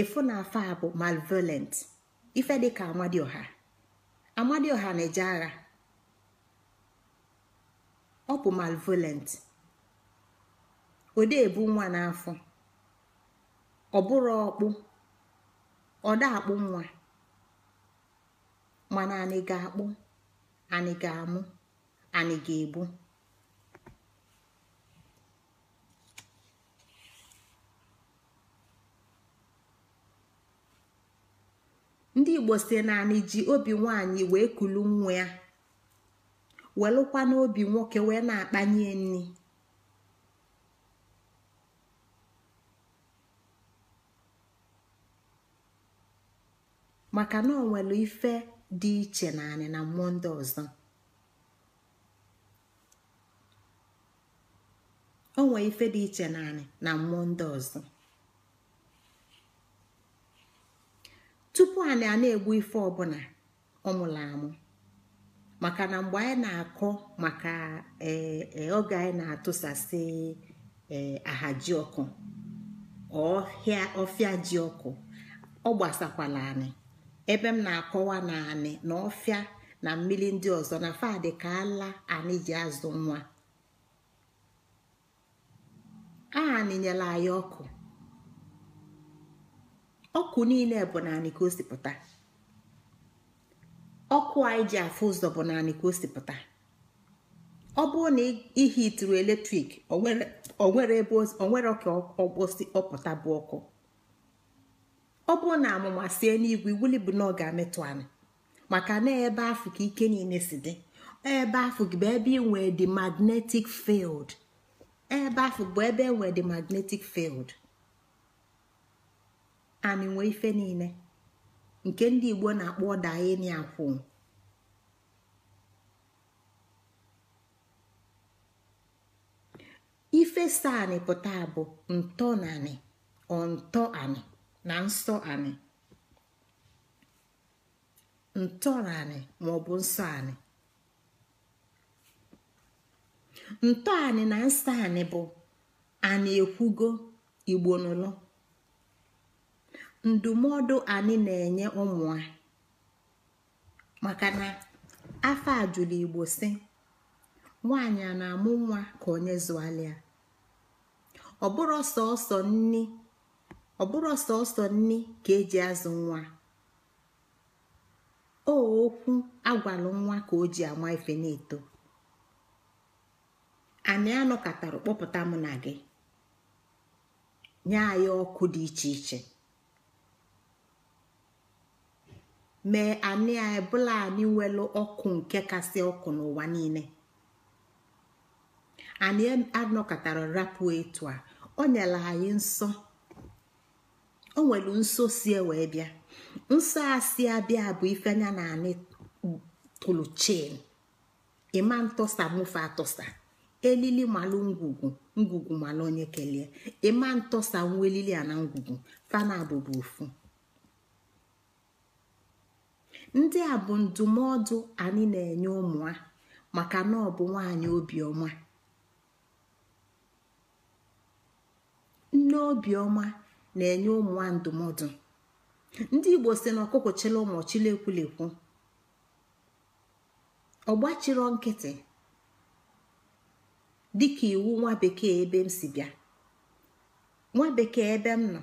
ịfụ na afọ a bụ malevolent ife dịka amadioha amadioha na-eje agha ọ bụ malvolent odebu nwa n'afọ ọ bụrụ ọkpụ ọda akpụ nwa mana anyị ga-akpụ anyị ga-amụ anyị ga ebu ndị igbo si naanị ji obi nwaanyị wee kulu nwa ya welụkwa n'obi nwoke wee na-akpanye nri maka na onwere ife dị iche naanị na mmụọ o ife dị iche naanị na mmụọ ndị ọzọ tupu anyị a na-egbu ife ọbụla ọmụrụ amụ maka na mgbe anyị na-akọ maka e, e, oge anyị na-atụsasị e, ji ọkụ ọfịa ji ọkụ ọ gbasakwala anyị ebe m na-akọwa na anyị na ọfịa na mmiri ndị ọzọ na fadị ka ala anyị ji azụ nwa anyị anyị ọkụ ọkụ niile bụ naanị ka o sipụta ọkụ anyị ji afụ ụzọ bụ naanị ka o sipụta ọ bụrụ na ihe ituru eletrik onwere ebe onwere ọkpọsi ọpụta bụ ọkụ ọ bụrụ na amụma sie n'igwe wuli bụ na ọ ga-ametụ anụ maka na ebe afụ ka ike niile si dị ebe afụ bụ ebe inwe dị magnetic field ebe afụ bụ ebe enwe dị magnetic field. anị nwee ife niile nke ndị Igbo na-akpọ ọdaeni akwụ ife saani pụta bụ ntọ na anị ọntọ anị na nsọ ani. Ntọani na maọbụ nsọ ani ntọ na nsọ bụ anị ekwugo igbo n'ụlọ ndụmọdụ anyị na-enye ụmụ a maka na afọ ajụlụ igbo si nwaanyị a na-amụ nwa ka onye zụalịa ọbụrụ sọọsọ nni sọọsọ nni ka eji azụ nwa o okwu agwalụ nwa ka o ji ama ife na-eto anyị anọ anọkọtara kpọpụta mụ na gị nye anyị ọkụ dị iche iche mee anị a ebụla anị ọkụ nke kasị ọkụ n'ụwa niile anyị anọkọtara rapụ etu a o nyere anyị nsọ o nwere nso si wee bịa nsọ a si abịa bụ ifenya na anị tụrụ chin ịma ntọsa mụfe atọsa elili malụ ngwugwu ngwugwu malụ onye kelee ịma ntọsa nwa elili a na ngwugwu fana bụ ofu ndị a bụ ndụmọdụ anyị na-enye ụmụ maka na ọ bụ nwaanyị obiọma nne obiọma na-enye ụmụ ndụmọdụ ndị igbo si na ọkụkọ chịla ụmụ chịla ekwulekwu ọgbachiro nkịtị dịka iwu nwa bekee ebe m si bịa nwa bekee ebe m nọ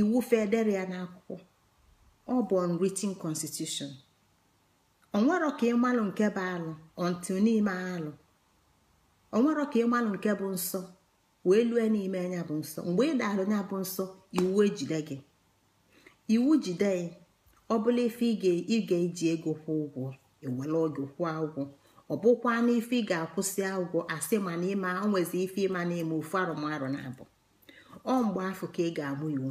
iwu federal n'akwụkwọ ọ bụ unwritten constitution onwero ka ịmalụ nke bụ alụ ọntụ n'ime alụ onwero ka ịmalụ nke bụ nsọ wee lue n'ime anya bụ nsọ mgbe ị daalụ nya bụ nsọ iwu ejide gị iwu jide gị ọ bụla ife ị ga-eji ego kwụ ụgwọ ewere oge kwụ ụgwọ ọ bụkwa n'ife ị ga-akwụsị ụgwọ asị ma na ịma onwezi ife ịma na ime ofu arụmarụ na abụ ọ mgbe afọ ka ị ga-amụ iwu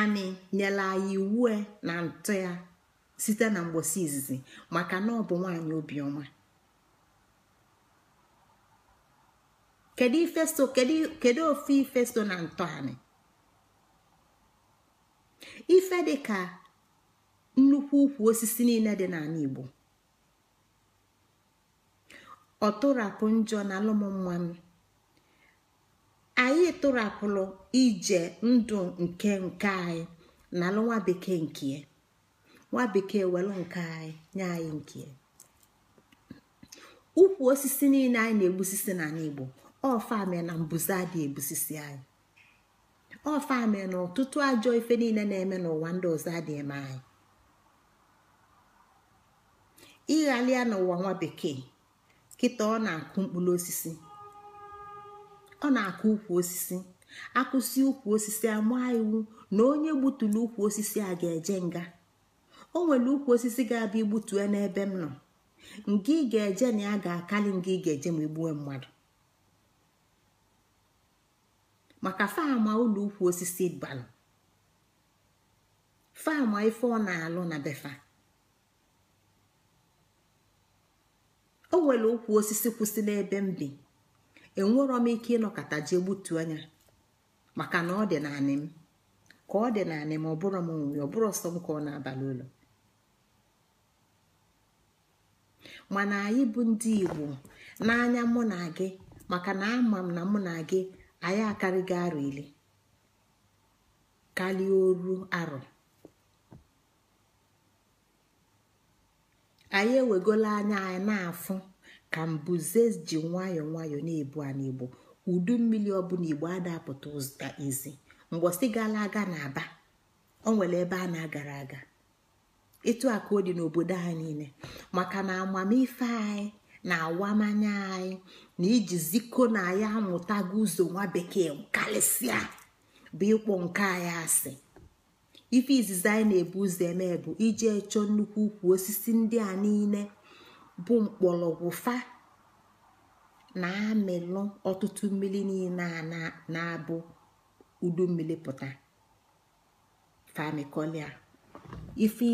ani nyela anyị iwu na ntụ ya site na mgbosi izizi maka na ọ bụ nwaanyị obiọma kedu ifesto kedu ofe ifesto na ntọ anị ife dị ka nnukwu ukwu osisi niile dị n'ala Igbo ọtụrapụ njọ na mmanụ tụrapụrụ ije ndụ nke nke anyị na alụ nwa bekee nke nwa bekee welụ nke anyị nye anyị nke ukwu osisi niile anyị na-egbusisi na n'igbo ọfame na mbuze adị egbusisi anyị ọfame na ọtụtụ ajọ ife niile na-eme n'ụwa ndị ọzọ adị eme anyị ịghalịa n'ụwa nwa bekee kịta ọ na-akụ mkpụrụ osisi ọ na-akụ ukwu osisi akwụsị ukwu osisi amaa iwu na onye gbutulu ukwu osisi a ga-eje nga o nwere ukwu osisi ga-abịa igbutue n'ebe m nọ nga ị ga-eje na ya ga-akali nga ị ga-eje ma igbuwe mmadụ maka fama ụlọ ukwu osisi balụ fama ife ọ na-alụ na befa o nwere ukwu osisi kwụsị n'ebe m bi enwero m ike ịnọkọta jee gbutuo anya maka na ọ dị naanị m ka ọ dị naanị m ọ bụrụ m nwe ọ bụrụ ọsọ m ka ọ na-abalị ụlọ mana anyị bụ ndị igbo n'anya mụ na gị maka na ama m na mụ na gị anyị akarịghị gị ile karịa oru arọ anyị ewegola anya anyị na-afụ ka mbuze ji nwayọọ nwayọọ na-ebu a n'igbo udu mmiri ọbụla igbo adapụta ụzụta izi mgbọsị gala aga na-aba o nwere ebe a na-agara aga ịtụ a ọ dị n'obodo anyị niile maka na amamife anyị na awamanya anyị na iji ziko na ya amụtago ụzọ nwa bekee karịsịa bụ ịkpọ nke anyị asị ife izizi anyị na-ebu ụzọ eme bụ chọọ nnukwu ukwu osisi ndị a niile bụ mkpọrọgwụ fa na-amịlụ ọtụtụ mmiri niile a na-abụ udu mmiri pụta famikolia ife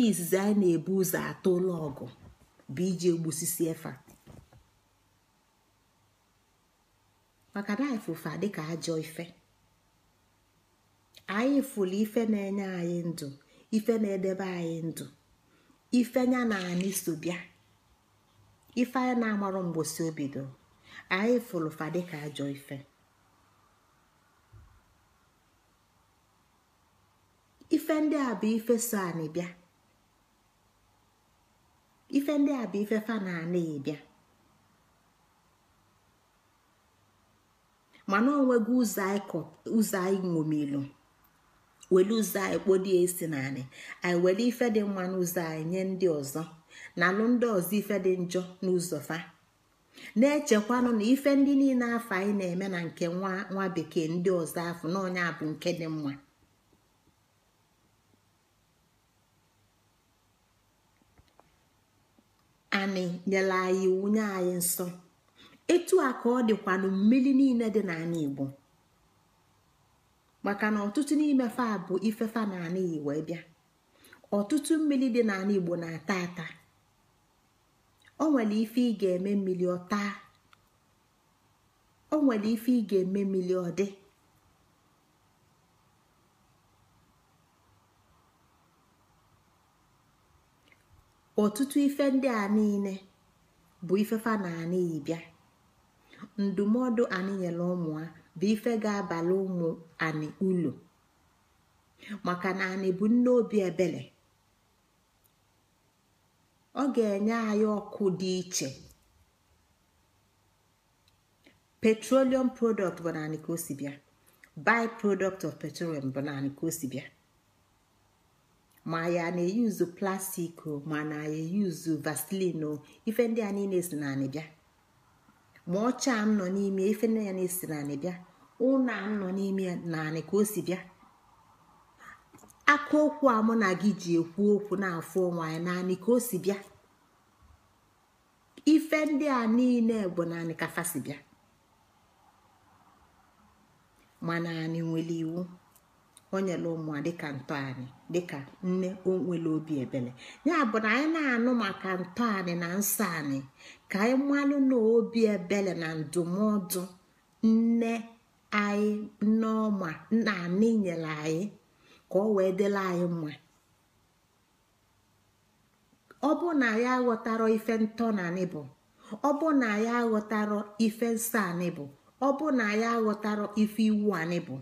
izizi anyị na-ebu ụzọ atọ ụlọ ọgụ bụ iji egbusisi efa maka na anyị dịka ajọ ife anyị fụrụ ife na-enye anyị ndụ ife na-edebe anyị ndụ ife nya na anyị so bịa ife anyị na-amarụ mgbosi obido anyị fụrụ fa dịka ajọ ife ife ndị a bụ ife so anị bịa ife ndị a bụ ife fa na anaghị bịa mana onweghị ụzọ anyị ṅomilu were ụzọ anyị kpodie esi na anyị anyị were ife dị mma n'ụzọ anyị nye ndị ọzọ na ndị ọzọ ife dị njọ n'ụzọ fa na-echekwanụ na ife ndị niile afọ anyị na-eme na nke nwa bekee ndị ọzọ afọ n'ọnya bụ nke dị mma anyị nyere anyị iwu nye anyị nsọ etu a ka ọ dịkwanụ mmiri niile dị n'ala Igbo maka na ọtụtụ n'ime fa bụ fa na Igbo bịa ọtụtụ mmiri dị n'ala Igbo na-ata ata o nwere ife ị ga-eme mmiri ọ o nwere ife ị ga-eme mmiri ọtụtụ ife ndị a niile bụ ifefa na anị ịbịa ndụmọdụ anyị nyere ụmụ ha bụ ife ga-abalị ụmụ anị ụlọ maka na anị bụ nne obi ebere ọ ga-enye anyị ọkụ dị iche petroleum product bụ naanị ka o si bịa by product of petroleum bụ naanị ka o si bịa ma ya na-eyuzu plastik ma na eyuzu vaseline ife ndị a niile si naanị bịa ma ọcha m nọ n'ime ife ndị ya na-esi naanị bịa ụna m nọ n'ime naanị ka o si bịa aka okwu a mụ na gị ji ekwu okwu na-afụ onwe anyị naanị ka o si bịa ife ndị a niile bụ naanị ka fasi bịa mana anyị nwere iwu o nyere ụmụ dịka ntọ anyị dịka nne o nwere obi ebele ya bụ na anyị na-anụ maka ntọ anyị na nsọ anyị ka anyị malụ na obi ebele na ndụmọdụ nne anyị nneọma nna anyị nyere anyị ka ọ wee dịla anyị mma ọ bụ na ya aghọtara ife ntọ na bụ ọ bụ na ya aghọtara ife nsọ anị bụ ọ bụ na ya aghọtara ife iwu anị bụ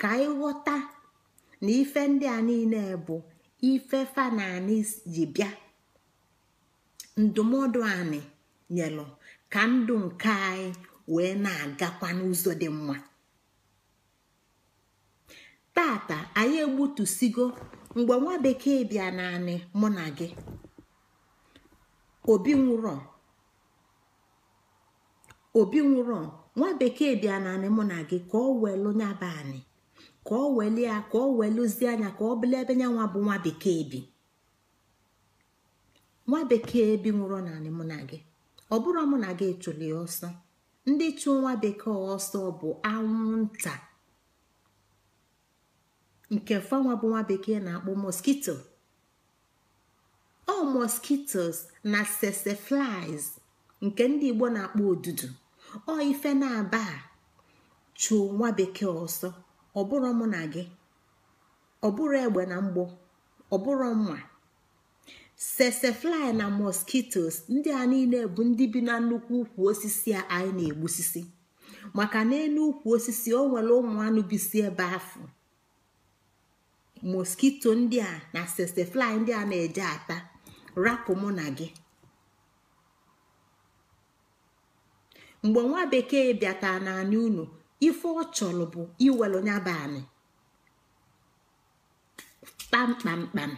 ka anyị ghọta na ife ndị a niile bụ ife fa ji bịa ndụmọdụ anyị nyelụ ka ndụ nke anyị wee na-agakwa n'ụzọ dị mma tata anyị egbutusigo mgbe nwa bekee bịa naanị mụ na gị obi nwụrọ obi nwụrọ nwa bekee bịa naanị mụ na gị ka ọ welụ nyaba anyị ka ọ weli ya ka ọ weluzie anya ka ọ bụla ebe nyanwa bụ nwa bekee bi nwa bekee bi nwụrọ naanị mụ na gị ọ bụrụ mụ na gị chụli ọsọ ndị chụ nwa bekee ọsọ bụ anwụnta nke fanwa bụ nwa bekee na-akpọ moskito ọ moskitos na seseflies nke ndị igbo na-akpọ odudu ọ ife na-aba chuo nwa bekee ọsọ ọbụrụ mụ na gị ọbụrụ egbe na mgbọ ọbụrụ mma sesefly na moskitos ndị a niile bụ ndị bi na nnukwu ukwu osisi a anyị na-egbusisi maka na n'elu ukwu osisi o nwere ụmụ anụ bisi ebe afọ moskito ndị a na sesefly ndị a na-eje ata rapụ mụ na gị mgbe nwa bekee bịata n'anya unu ife ọ chọrọ bụ iwelu nyaba kpamkpamkpam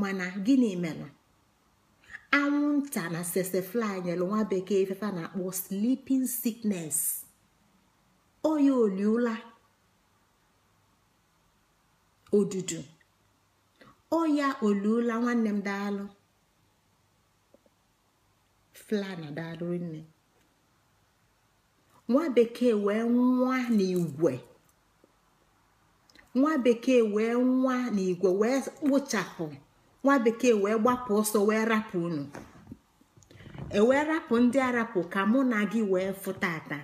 mana gịnị mere anwụnta na sesefly nyere nwa bekee ifefa na-akpọ sleeping sickness oya oliola odudu ọya oluola nwanne m daalụ Fla na daalụ nne nwa bekee wee nwa n'igwe nwa bekee wee nwa n'igwe wee kpụchapụ nwa bekee wee gbapụ ọsọ wee rapụ unu ewee rapụ ndị arapụ ka mụ na gị wee fụtata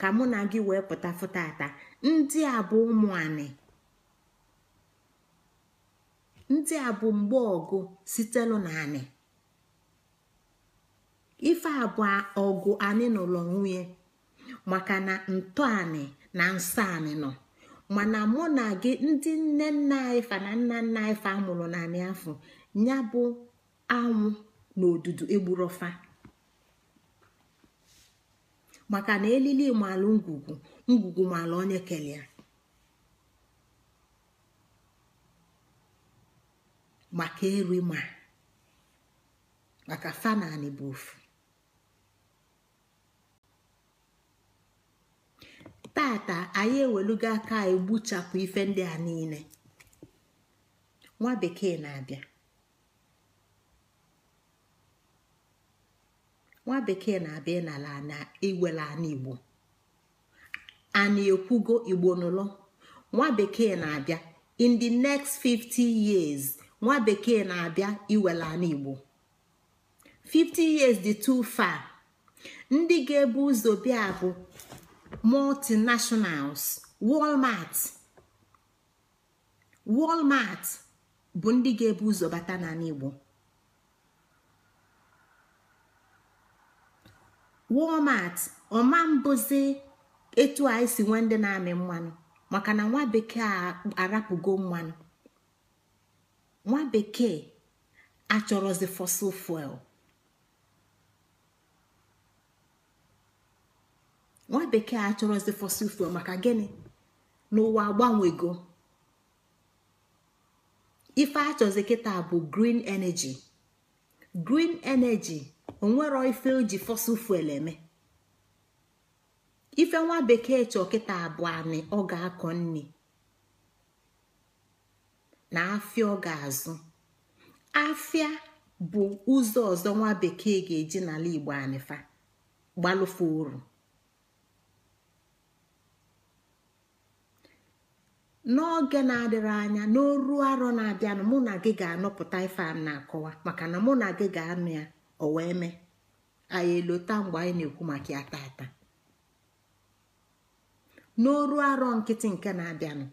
ka mụ na gị wee pụta fụtata ndị a bụ ụmụ anị ndị a bụ mgbe ọgụ sitelu na anị ife abụọ ọgụ anị n'ụlọ nwunye maka na ntọ anị na nsọ anị nọ mana mụ na gị ndị nne nna anyị na nna nna anyị fa amụrụ afọ ya bụ anwụ na odudu egburofa maka na elili malụ ngwugwu ngwugwu malụ onye ya. maka eri ma maka fanani bụ ofu tata anyị ewelugo aka egbuchapụ ife ndị a niile nwa bekee na-abịa nwa bekee na-abịa n'ala na iwele ana igbo ana ekwugo igbo nụlọ nwa bekee na-abịa in the next 50 years nwa bekee na-abịa iwere ala igbo 50 years di too far ndị ga-ebu ụzọ bịa bụ multinationals walmart walmart bụ ndị ga-ebu ụzọ bata n'ala igbo walmart ọma mbụzi etu anyị si nwee ndị na-amị mmanụ maka na nwa bekee a arapụgo mmanụ nwa bekee achọrọzi fossil fuel nwa bekee achọrọzi fuel maka gịnị n'ụwa agbanwego ife achọzi kịta bụ green energy green energy onwero ife ji fossil fuel eme ife nwa bekee chọ kịta abụọ anị ọ ga-akọ nri na afịa ọ ga-azụ afịa bụ ụzọ ọzọ nwa bekee ga-eji n'ala igbo anịfa gbalụfe uru n'oge na-adịrị anya n'oru arọ na-abịanụ mụ na gị ga-anọpụta ife a na-akọwa maka na mụ na gị ga-anụ ya o wee mee anyị elota mgbe anyị na-ekwu maka ya taata n'oru arọ nkịtị nke na-abịanụ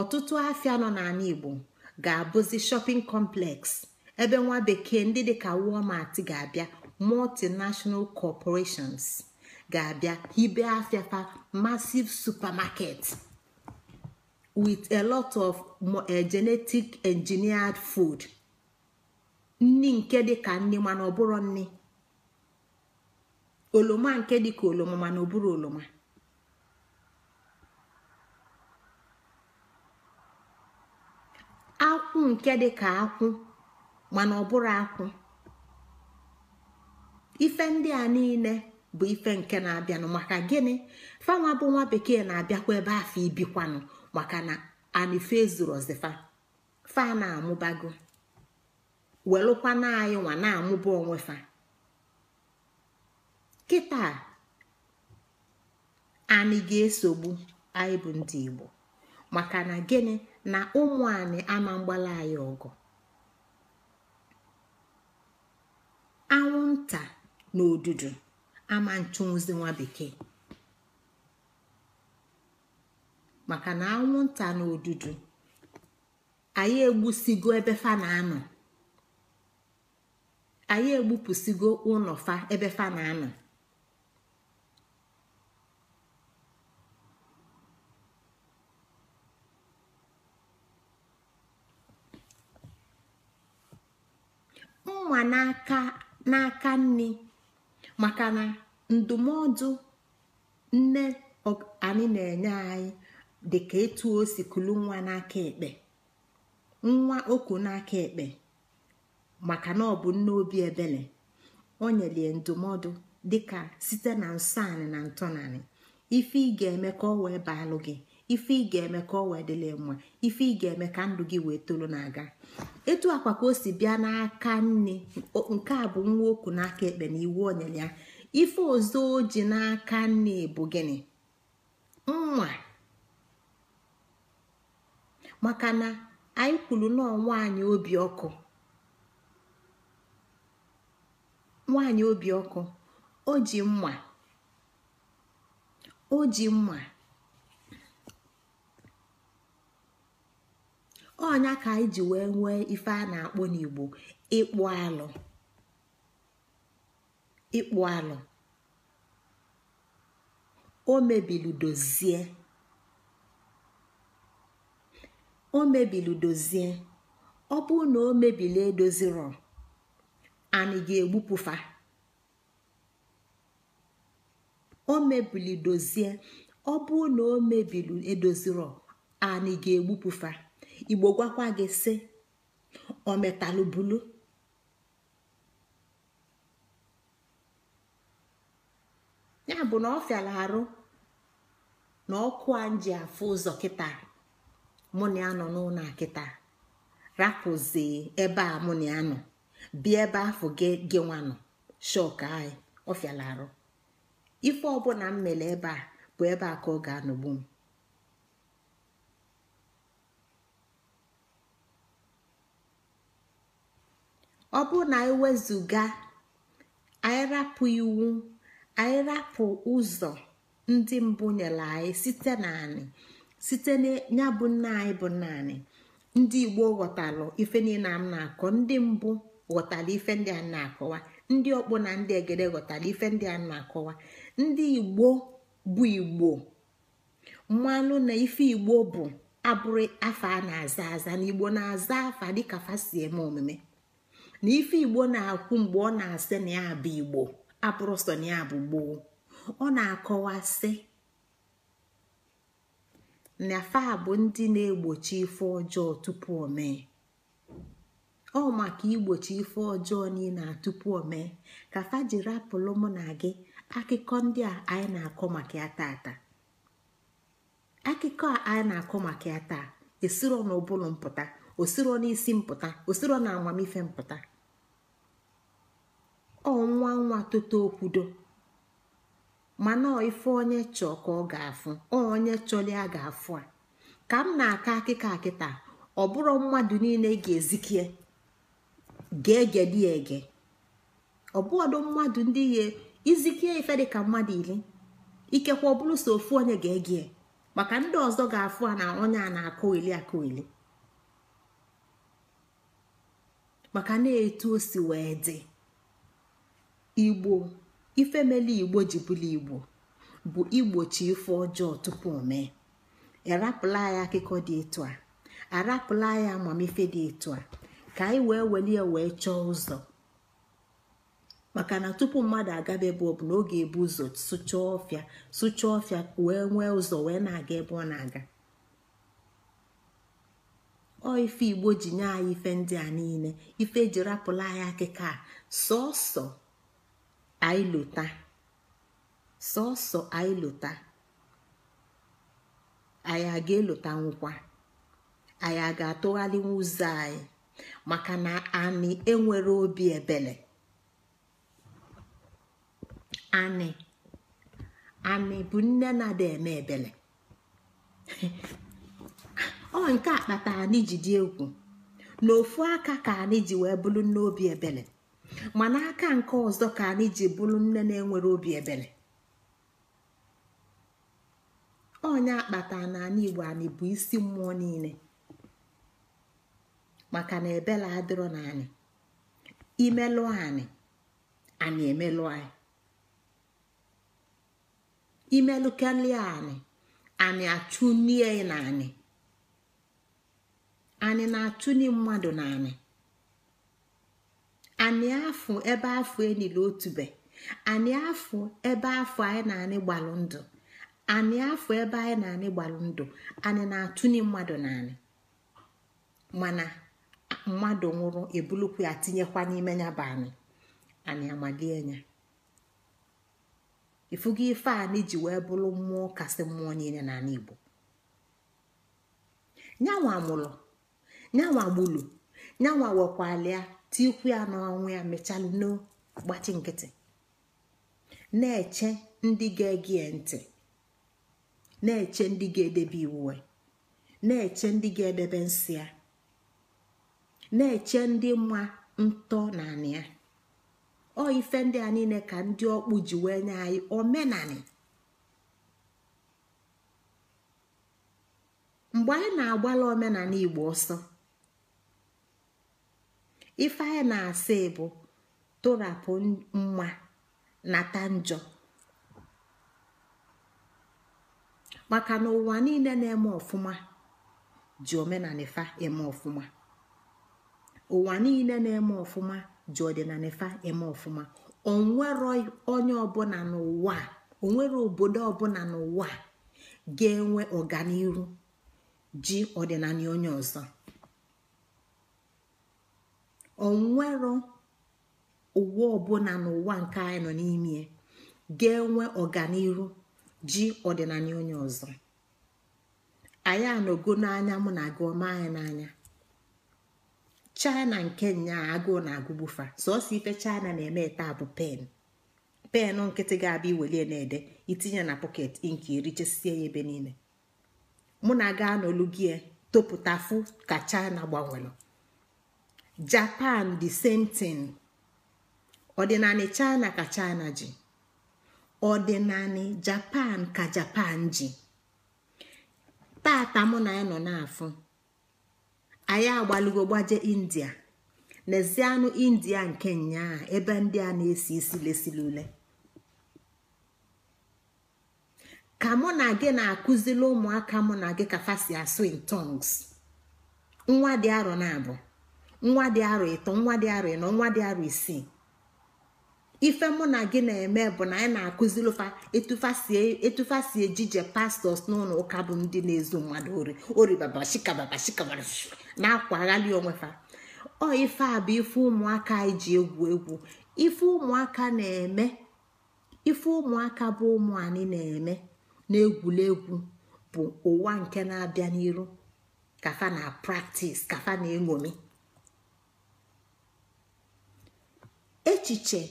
ọtụtụ afịa nọ n'ala igbo ga-abụzi shopping complex ebe nwa bekee ndị dịka walmart ga-abịa multinational corporations ga-abịa hibe afịa fa massive supermarket with a lot of eh, genetic engineered food nni nke dịka nni mana ọ bụrụ nni oloma nke dịka oloma mana ọ bụrụ oloma. akwụ nke dị ka akwụ mana ọ bụrụ akwụ ife ndị a niile bụ ife nke na-abịanụ maka gịnị fanwa bụ nwa bekee na-abịakwa ebe afọ ibikwanụ maka na anife zuru ọzifa fa na-amụbago welụkwa na anyị na-amụba onwe fa kịta anyị ga-esogbu anyị bụ ndị Igbo maka na gịnị na ụmụ anyị ama mgbala anyị ọgụ anwụnta na odudu ama nchụnwụzi nwa bekee maka na anwụnta na odudu anyị egbusigo ebe fa na-anọ anyị egbupụsigo ụlọ fa ebe fa na-anọ mma n'aka n'aka nri maka na ndụmọdụ nne anyị na-enye anyị dị ka etu o si kulu nwa n'aka ekpe nwa oku n'aka ekpe maka na ọ bụ nne obi ebele o nyere ndụmọdụ dịka site na nsọ anyị na ntọnanị ife ị ga-eme ka ọ wee baalụ gị ife ị ga-eme ka ọ wee mma ife ị ga-eme ka ndụ gị wee toro na-aga etu akwa ka o si bịa n'aka nne nke a bụ nwa okwu n'aka ekpe na iwu onyere ya ife ọzọ o n'aka nne bụ gịnị nwa maka na anyị kwuru nọọ nwaanyị obi ọkụ nwaanyị obi o ji mma o ji mma ọnya ka anyị ji wee nwee ife a na-akpọ n'igbo ịkpụ alụ ịkpụ alụ o mebili dozie o mebili dozie ọ bụrụ na o mebili edoziro anyị ga-egbupụfa o mebili dozie ọ bụrụ na o mebili edoziro anyị ga-egbupụfa igbo gwakwa gị sị ometalụbulu ya bụ na ọ fịara arụ na ọkụ a ji afụ ụzọ kịta mụ na ya nọ n'ụlọ akịta rapụzi ebe a mụ na ya nọ ebe afọ gị nwanụ shok anyị ọ fịara arụ ife ọbụla m mere ebe a bụ ebe a ka ọ ga-anọgbu m ọ bụrụ na anyị wezụga anyị rapụ iwu anyị rapụ ụzọ ndị mbụ nyere anyị site naanị site ya bụ nna anyị bụ naanị ndị igbo ghọtalụ ife niile m na-akọ ndị mbụ ghọtara ife ndị a na-akọwa ndị ọkpọ na ndị egede ghọtara ife ndị a na-akọwa ndị igbo bụ igbo mmanụ na ife igbo bụ abụrụ afa a na-aza aza na igbo na-aza afa dịka fa eme omume na ife igbo na-akwụ mgbe ọ na-asị na ya bụ igbo apụrụsọ na ya bụ gboo ọ na-akọwasị na fa bụ ndị na-egbochi ife ọjọọ tupu o mee ọ maka igbochi ife ọjọọ niile tupu omee ka fa jiri apụlụ mụ na gị akụkọ ndị a anyị na-akọ maka ya taata akụkọ a anyị na-akọ maka ya taa esiro n'ụbụlụ mpụta osiro n'isi mpụta osiro na amamife mpụta ọnwa nwa nwa okwudo mana ife onye chọọ ka ọ ga-afụ onye chọrọ ya ga-afụ a ka m na-aka akịka akịta ọ bụrụ mmadụ niile ga-ezikie ga-egedi ege ọ bụọdụ mmadụ ndị ihe izikie ife dị ka mmadụ ili ikekwe ọ bụrụ so ofu onye ga-egie maka ndị ọzọ ga-afụ a na onye a na akọ ili akọ ili maka na-etu o si wee dị igbo ife igbo ji bụla igbo bụ igbochi ife ọjọọ tupu mee arapụla ya akụkọ dị etu a arapụla ya amamife dị etu a ka anyị wee welie wee chọọ ụzọ maka na tupu mmadụ agaba ebe ọ bụ na ọ ga-ebu ụzọ sụchaa ọfịa sụchaa ọfịa wee nwee ụzọ wee na-aga ebe ọ na-aga ọ ife igbo ji nye anyị ife ndị a niile ife eji rapụla anya akịka a sọọsọ aịlota sọọsọ aịlota anyị a ga-elota anyị a ga-atụgharịnwu ụzọ anyị maka na anyị enwere obi ebele anị anị bụ nne na eme ebele ọ nke a kpatara anyị ji dị egwu ofu aka ka anyị ji wee bụrụ obi ebele ma n'aka nke ọzọ ka anyị ji bụrụ nne na-enwere obi ebere onye akpata na anyị igbo anyị bụ isi mmụọ niile maka na ebela adịrọ na anyị imelụ anyị anyị emelụ anyị imelụkelie anyị anyị achụnie na anyị anyị na-achụni mmadụ na anyị anị afụ ebe afọ enile otube anị afụ ebe afọ anyị na-anị gbalụ ndụ anị afọ ebe anyị na-anị gbalụ ndụ anị na-atụnye mmadụ naanị mana mmadụ nwụrụ ebulukwu ya tinyekwa n'ime ya bụ anyị anị amalie ya ifugo ife anị ji wee bụrụ mmụọ kasị mmụọ niile n'ala Igbo nyanwa mụrụ nyanwa gbulu nyanwa wekwalia tikwu ya n'ọnwụ ya mechalụ n'gbachi nkịtị na-eche ndị ga-ege ntị na-eche ndị ga-edebe iwuwe na-eche ndị ga-edebe nsị ya na-eche ndị mma ntọ na anị ya ọ ife ndị a niile ka ndị ọkpụ ji wee nye anyị omenanị mgbe anyị na-agbala omenala igbo ọsọ ife na-asị bụ torapụ mma nata njọ maka na ụwa niile na-eme ọfụma ji omenala ifa eme ọfụma ụwa niile na-eme ọfụma ji ọdịnala ifa eme ọfụma onwere onye ọbụla n'ụwa onwere obodo ọbụla n'ụwa ga-enwe ọganihu ji ọdịnala onye ọzọ onwero ụwa ọbụla n'ụwa nke anyị nọ n'ime ga-enwe ọganihu ji ọdịnala onye ọzọ anyị anọgo n'anya mụ na gị anyị n'anya china nke nya agụụ na agụgbufa sọsọ ife china na-eme taa bụ pen pen nkịtị ga-abịa iwelie na-ede itinye na pọket inki chesie ya ebe niile mụ na gị anọlụ gị topụta fụ ka china gbanwere japan the same thing ọdịnanị china ka china ji ọdịnanị japan ka japan ji tata mụ na ya nọ n'afọ anyị agbalugo gbaje india nezianụ india nke nyaa ebe ndị a na-esi isi lesili ule ka mụ na gị na-akụzili ụmụaka mụ na gị ka fasi asụ in tongues nwa dị arọ na abụọ nwa dị arọ ịtọ nwa dị arọ ịnọ nwa dị arọ isii ife mụ na gị na-eme bụ na anyị na-akụziri ụfa etufa si e, ejije pastọs n'ụlọ ụka bụ ndị na-ezu mmadụ ori oribabashikababashikabara na-akwa aghali onwefa ọ ife a bụ ife ụmụaka anyị ji egwu egwu ife ụmụaka na-eme ife ụmụaka bụ ụmụ anyị na-eme na-egwuregwu bụ ụwa nke na-abịa n'iru kafa na praktis kafa na-eṅomi echiche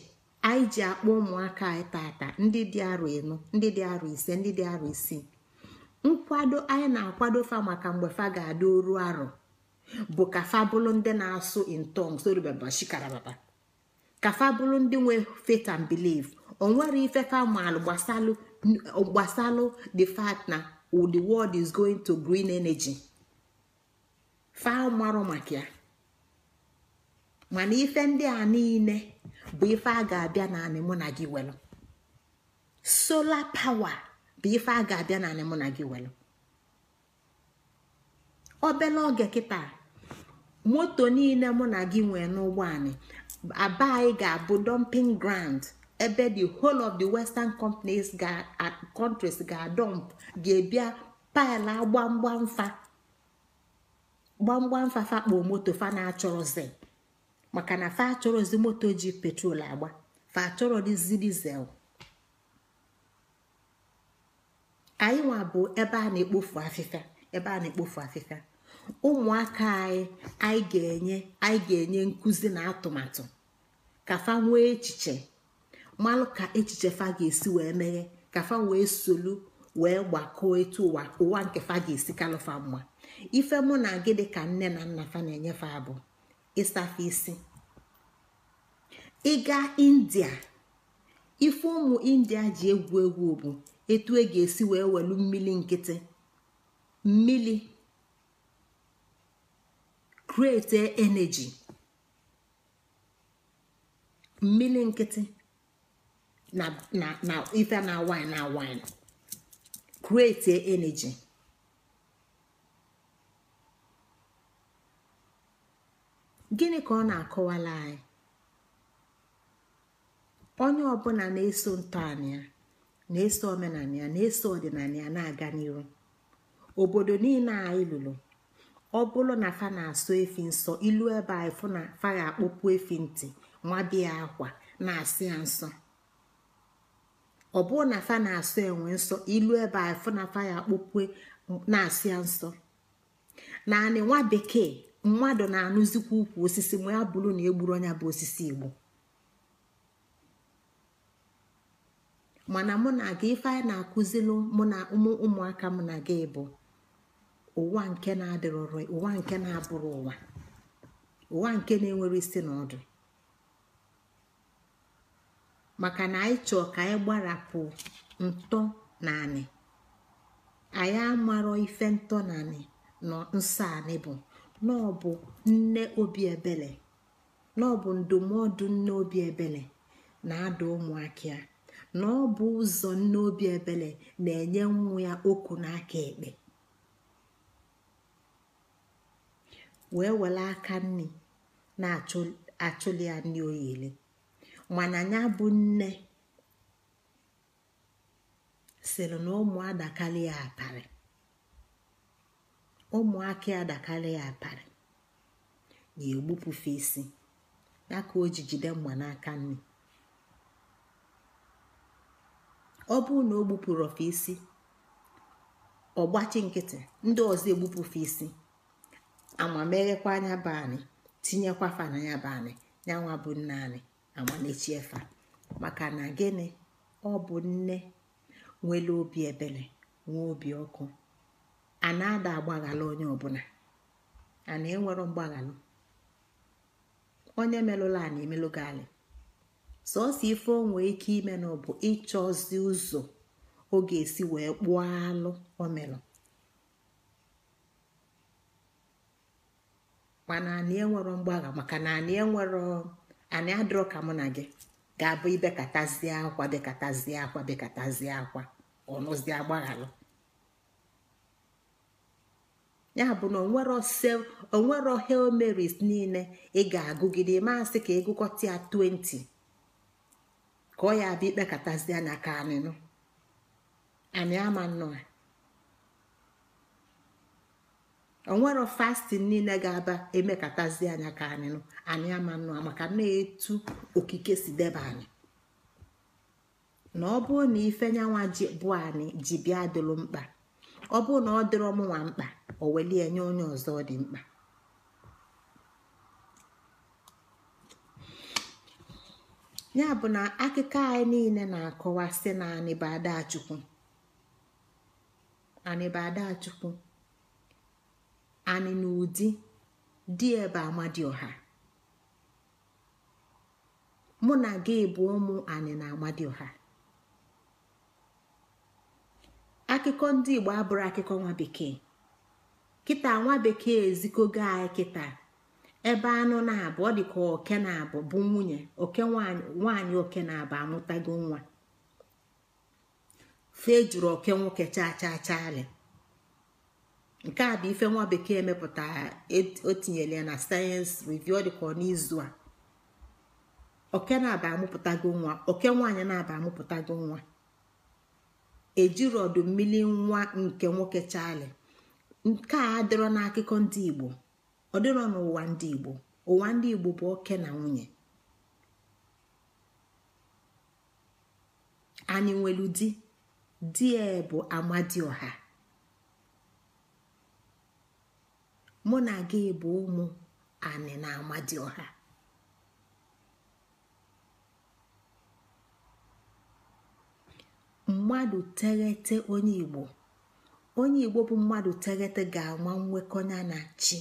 anyị ji akpọ ụmụaka anyị tata ndị dị arọ ịnọ ndị dị arọ ise ndị dị arọ isii nkwado anyị na-akwado fa maka mgbe fa ga-adị oru arọ bụ ka fa bụrụ ndị na-asụ intong soribabashikarababa ka fa bụrụ ndị nwee faith and belief o nwere ife fa maalụ gbasalụ the fact na the world is going to green energy fa marụ maka ya mana ife ndị a niile bụ ife a ga-abịa naanị mụ na gị welu sola power bụ ife a ga-abịa naanị mụ na gị welu obele oge kịta moto niile mụ na gị nwee n'ụgbọ anyị aba ga-abụ dumping ground ebe the whole of the western companies countries ga adump ga ebia pile gbamgbam fa fakpo moto fa na-achọrọzi maka na fa achọrọzi moto ji petrol agba fa achọrọ dizi dizel anyị nwa bụ ebe a na-ekpofu afịfịa ebe a na-ekpofu afịfịa ụmụaka anyị anyị ga-enye anyị ga-enye nkụzi na atụmatụ ka fa nwee echiche malụ ka echiche fa ga-esi wee meghe ka fa wee solu wee gbakọọ etu ụwa ụwa nke fa ga-esi kalụfa mma ife mụ na gị dị ka nne na nna fa na-enyefe abụọ. ịsafe isi ịga india ife ụmụ india ji egwu egwu bụ etu e ga-esi wee welu mmili nkịtị mmili krete energy mmili nkịtị na ife na wine na wine krete energy. gịnị ka ọ na-akọwala anyị onye ọbụla na-eso ntọala ya na-eso omenala ya na-eso ọdịnala ya na-aga n'iru obodo niile anyị lụrụ ọ bụrụ na fa na-asọ efi nsọ ilu ebe anyị fụ na fa ya akpọpụ efi ntị nwabia akwa na-asị ya nsọ ọ bụrụ na fa na-asọ enwe nsọ ilu ebe anyị fụ na fa ya akpọpụ e, na-asị ya nsọ naanị nwa bekee mmadụ na-anụzikwa ukwu osisi ma ya bụrụ na egburu onye bụ osisi igbo mana mụ na gị ife anyị na-akụzilụ mụ na ụmụaka m na gị bụ ụwa nke na ụwa nke na-abụrụ ụwa ụwa nke na-enwere isi na ọdụ maka na anyị chọọ ka anyị gbarapụ ntọ naanị anyị amarọ ife ntọ na nọ nsọ anị bụ na ọ bụ ndụmọdụ nne obi ebele na-ada ụmụaka ya na ọ bụ ụzọ nne obi ebele na-enye nwa ya okwu n'aka ekpe wee were aka nni na-achụli ya nri oyili mana ya bụ nne sịrị na ụmụada ya atarị ụmụaka adakarị ya aparị na egbupụfe isi ya ka o ji mgba n'aka nri ọ bụrụ na o gbupụrụ ofe isi ọgbachi nkịtị ndị ọzọ egbupụfe isi amameghekwa anya be anyị tinyekwa fa na ya bụ anyị nyanwa bụ nne anyị amanechie maka na gịnị ọ nne nwere obi ebere nwee obi ọkụ a na-ada agbaghalụ onye ọbụla a na-enwero mgbaghalụ onye merụla a na-emelụ gị alị sọsọ ife o nwee ike ime na ọ bụ ịchọzi ụzọ ọ ga-esi wee kpụọ alụ o merụ mana anyị enwere mgbagha maka na anyị enwero anyị adịrọ ka mụ na gị ga-abụ ibekatazie akwa bekatazie akwa bekatazie akwa ọnụzie agbaghalụ ya bụ na onwero hail niile ị ga-agụgide maasị ka ịgụkọta ya 20 ka ọ ya bụ ikpekọtazie anya ka anịnụ anyị ama nnọọ onwero fastin niile ga-aba emekatazi anya ka anyị anyị ama nnọọ maka na-etu okike si deba anyị na ọ bụrụ na ife nyanwa bụ anyị ji bịa dịlụ mkpa ọ bụrụ na ọ dịrọ mụnwa mkpa o welie nye onye ọzọ ọ dị mkpa ya bụ na akụkọ anyị niile na-akọwa sị na anịbadachukwu anịbadachukwu anị na ụdị dị ebe amadioha mụ na gị bụ ụmụ anị na amadioha akụkọ ndị igbo abụrụ akụkọ nwa bekee kịta nwa bekee ezikogo anyị kịta ebe anụ na-abụ ọ dịka oke na-abụ bụ nwunye oke nwaanyị oke na-abụ amụtago nwa fee jụrụ oke nwoke chaa chaa nke a bụ ife nwa bekee mepụtara e, o na sayensị review ọ dịka n'izu a oke na abụ amụpụtago nwa oke nwaanyị na-aba amụpụtago nwa ejiri ọdụ mmiri nwa nke nwoke chali nke a adịrọ n'akụkọ ndị igbo ọ dịrọ n'ụwa ndị igbo ụwa ndị igbo bụ oke na nwunye anyị nwelu di e bụ amadioha mụ na gị bụ ụmụ anị na ọha mmadụ tereta onye igbo onye igbo bụ mmadụ teghete ga anwa nwekọ ya na chi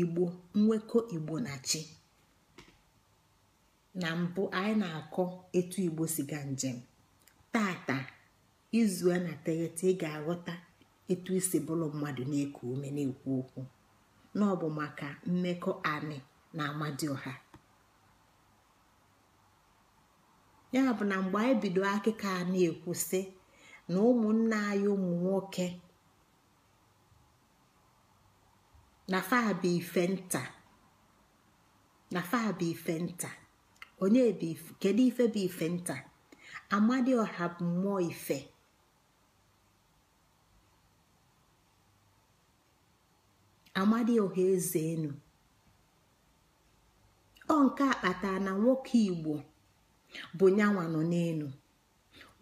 igbo nwekọ igbo na chi na mbụ anyị na-akọ etu igbo si ga njem tata izu a na teghete ị ga-aghọta etu isi bụrụ mmadụ na-eku ume na-ekwu okwu na bụ maka mmekọ anị na amadioha ya bụ na mgbe anyị bido akịka a na-ekwusị na ụmụnna anyị ụmụ nwoke na fabụ ife nta na fabụ ife nta onye kedu ife bụ ife nta ọha bụ mmụọ ife amadioha eze enu ọ nke akpata na nwoke igbo bụ nyanwa nọ n'elu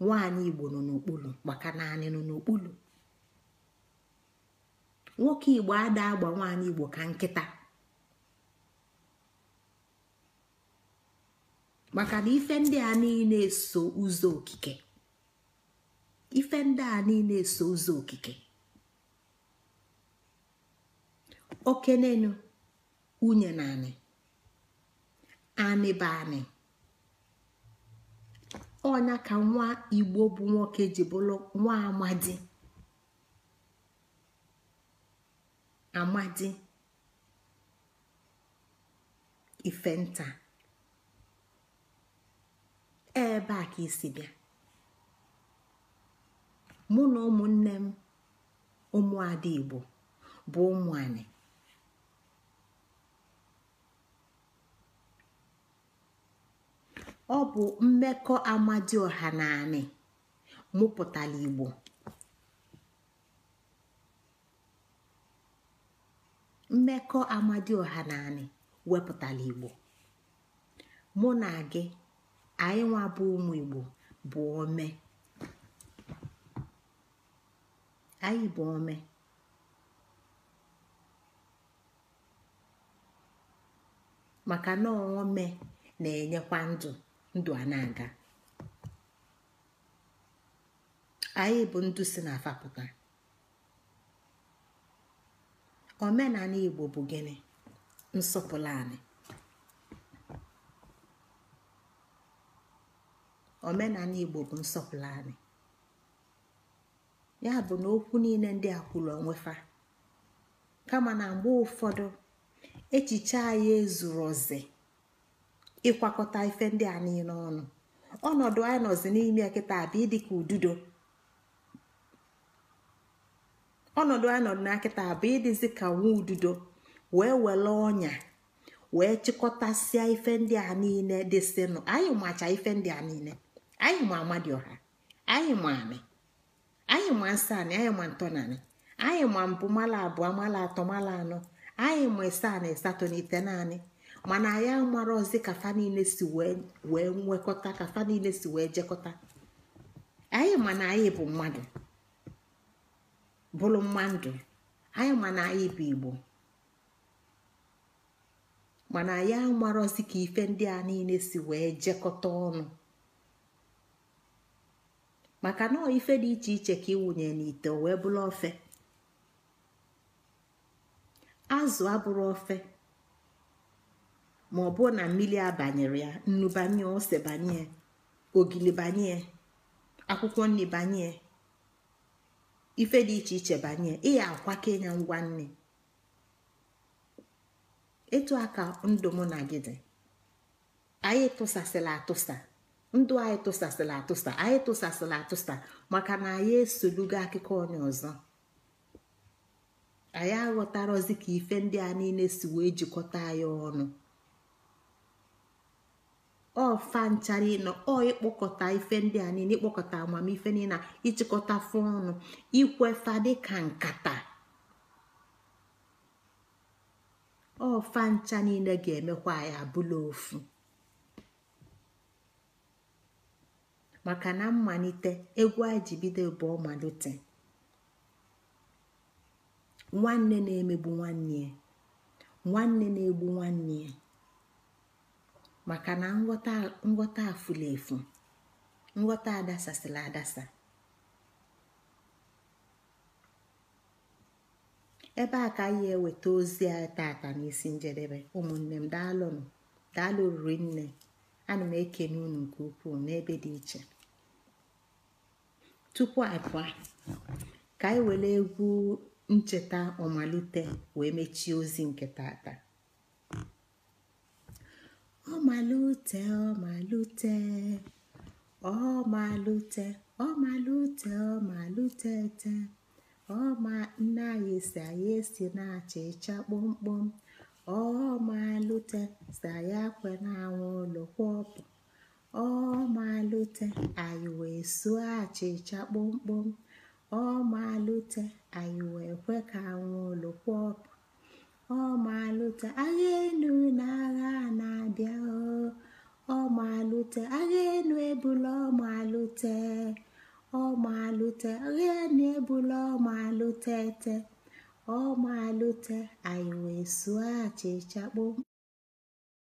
nwaanyị igbo nọ n'okpuru maka naanị nọ n'okpuru nwoke igbo ada agba nwaanyị igbo ka nkịta maka na ife ndị a niile so ụzọ okike ife ndị a niile so ụzọ okike okenenu na anị anị bụ anị ọnya ka nwa igbo bụ nwoke ji bụrụ nwa amadi amadi ifenta ebe a ka isi bịa mụ na ụmụnne m ụmụada igbo bụ ụmụ anyị ọ bụ mmekọ amadioha na anị mụpụtara igbo mmekọ amadi ọha naanị wepụtara igbo mụ na gị anyị nwa bụ ụmụ igbo bụ ome anyị bụ ome maka na ome na-enyekwa ndụ ndụ a na-aga anyị bụ ndụ si na afapụga omenala igbo bụ gịnị nsọpụrụ anyị omenala igbo bụ nsọpụrụ ya bụ na okwu niile ndị a kwuru onwefa kama na mgbe ụfọdụ echiche anyị ezuru ozi ịkwakọta ife ndị a niile ọnụ ọnọdụ anyị nọzi n'ime kịta bụ ịdị ka ududo ọnọdụ anyị nọdụ na kịta bụ ịdịzi ka nwa ududo wee were ọnya wee chịkọtasịa ife ndị a niile dịsịnụ anyị macha ife ndị a niile anyị ma ọha anyị ma amị anyị ma nsọ anị anyị ma ntọnanị anyị ma mbụ mala abụọ mala atọ mala anọ anyị ma ise anị asatọ na ite naanị mana ya marọzi ka fa niile si wee nwekọta ka fa niile si wee jekọta anyị ma na anyị bụ mmadụ bụrụ mmadụ anyị ma na anyị bụ igbo mana ya ọzị ka ife ndị a niile si wee jekọta ọnụ maka na ife dị iche iche ka ịwụnye n'ite wee bụrụ ofe azụ abụrụ ofe ma ọ bụ na mmiri abanyere ya nnu banye ose banye ogili banye akwụkwọ nri banye ife dị iche iche banye ịya akwake ya ngwa nne etu aka ndụ na gị dị anyị tụsasịla atụsa ndụ anyị tụsasịla atụsa anyị tụsasịla atụsa maka na anyị esolugo akụkọ onye ọzọ anyị aghọtarozi ka ife ndị a niile si wee jikọta anyị ọnụ ọfa nchara ịnọ ọ ịkpọkọta ife ndị a niile ịkpọkọta amamife niile ịchịkọta fụ ọnụ ikwefa dịka nkata ọfa ncha niile ga-emekwa ya abụla ofu maka na mmalite egwu anyị bụ ọmalite nwanne na-emegbu nwanne nwanne na-egbu nwanne ya maka na nghọta efu nghọta adasasịla adasa ebe a ka anyị eweta ozi a tata n'isi njedebe ụmụnne m daalụnụ daalụ oriri nne ana m ekene unu nke ukwuu n'ebe dị iche tupu abụọ ka anyị were egwu ncheta ọmalite wee mechie ozi nke tata ọmalute ọmalute ọmalute ọmalute ọmalute te ọma nne anyị si anyị esi na achịcha kpọmkpọm ọmalute si anyị akwe na-anwụ ụlọ kwọpụ ọmalute anyị wee suo achịcha kpọmkpọm ọmalute anyị wee kwe ka anwụ ụlọ kwọpụ maalute agha enu na agha na-abịa maalute agha enu ebula ọmalụte ọmalụte agha enu ebula ọmalụte ete ọmalụte anyị wee sụọ achịcha kpom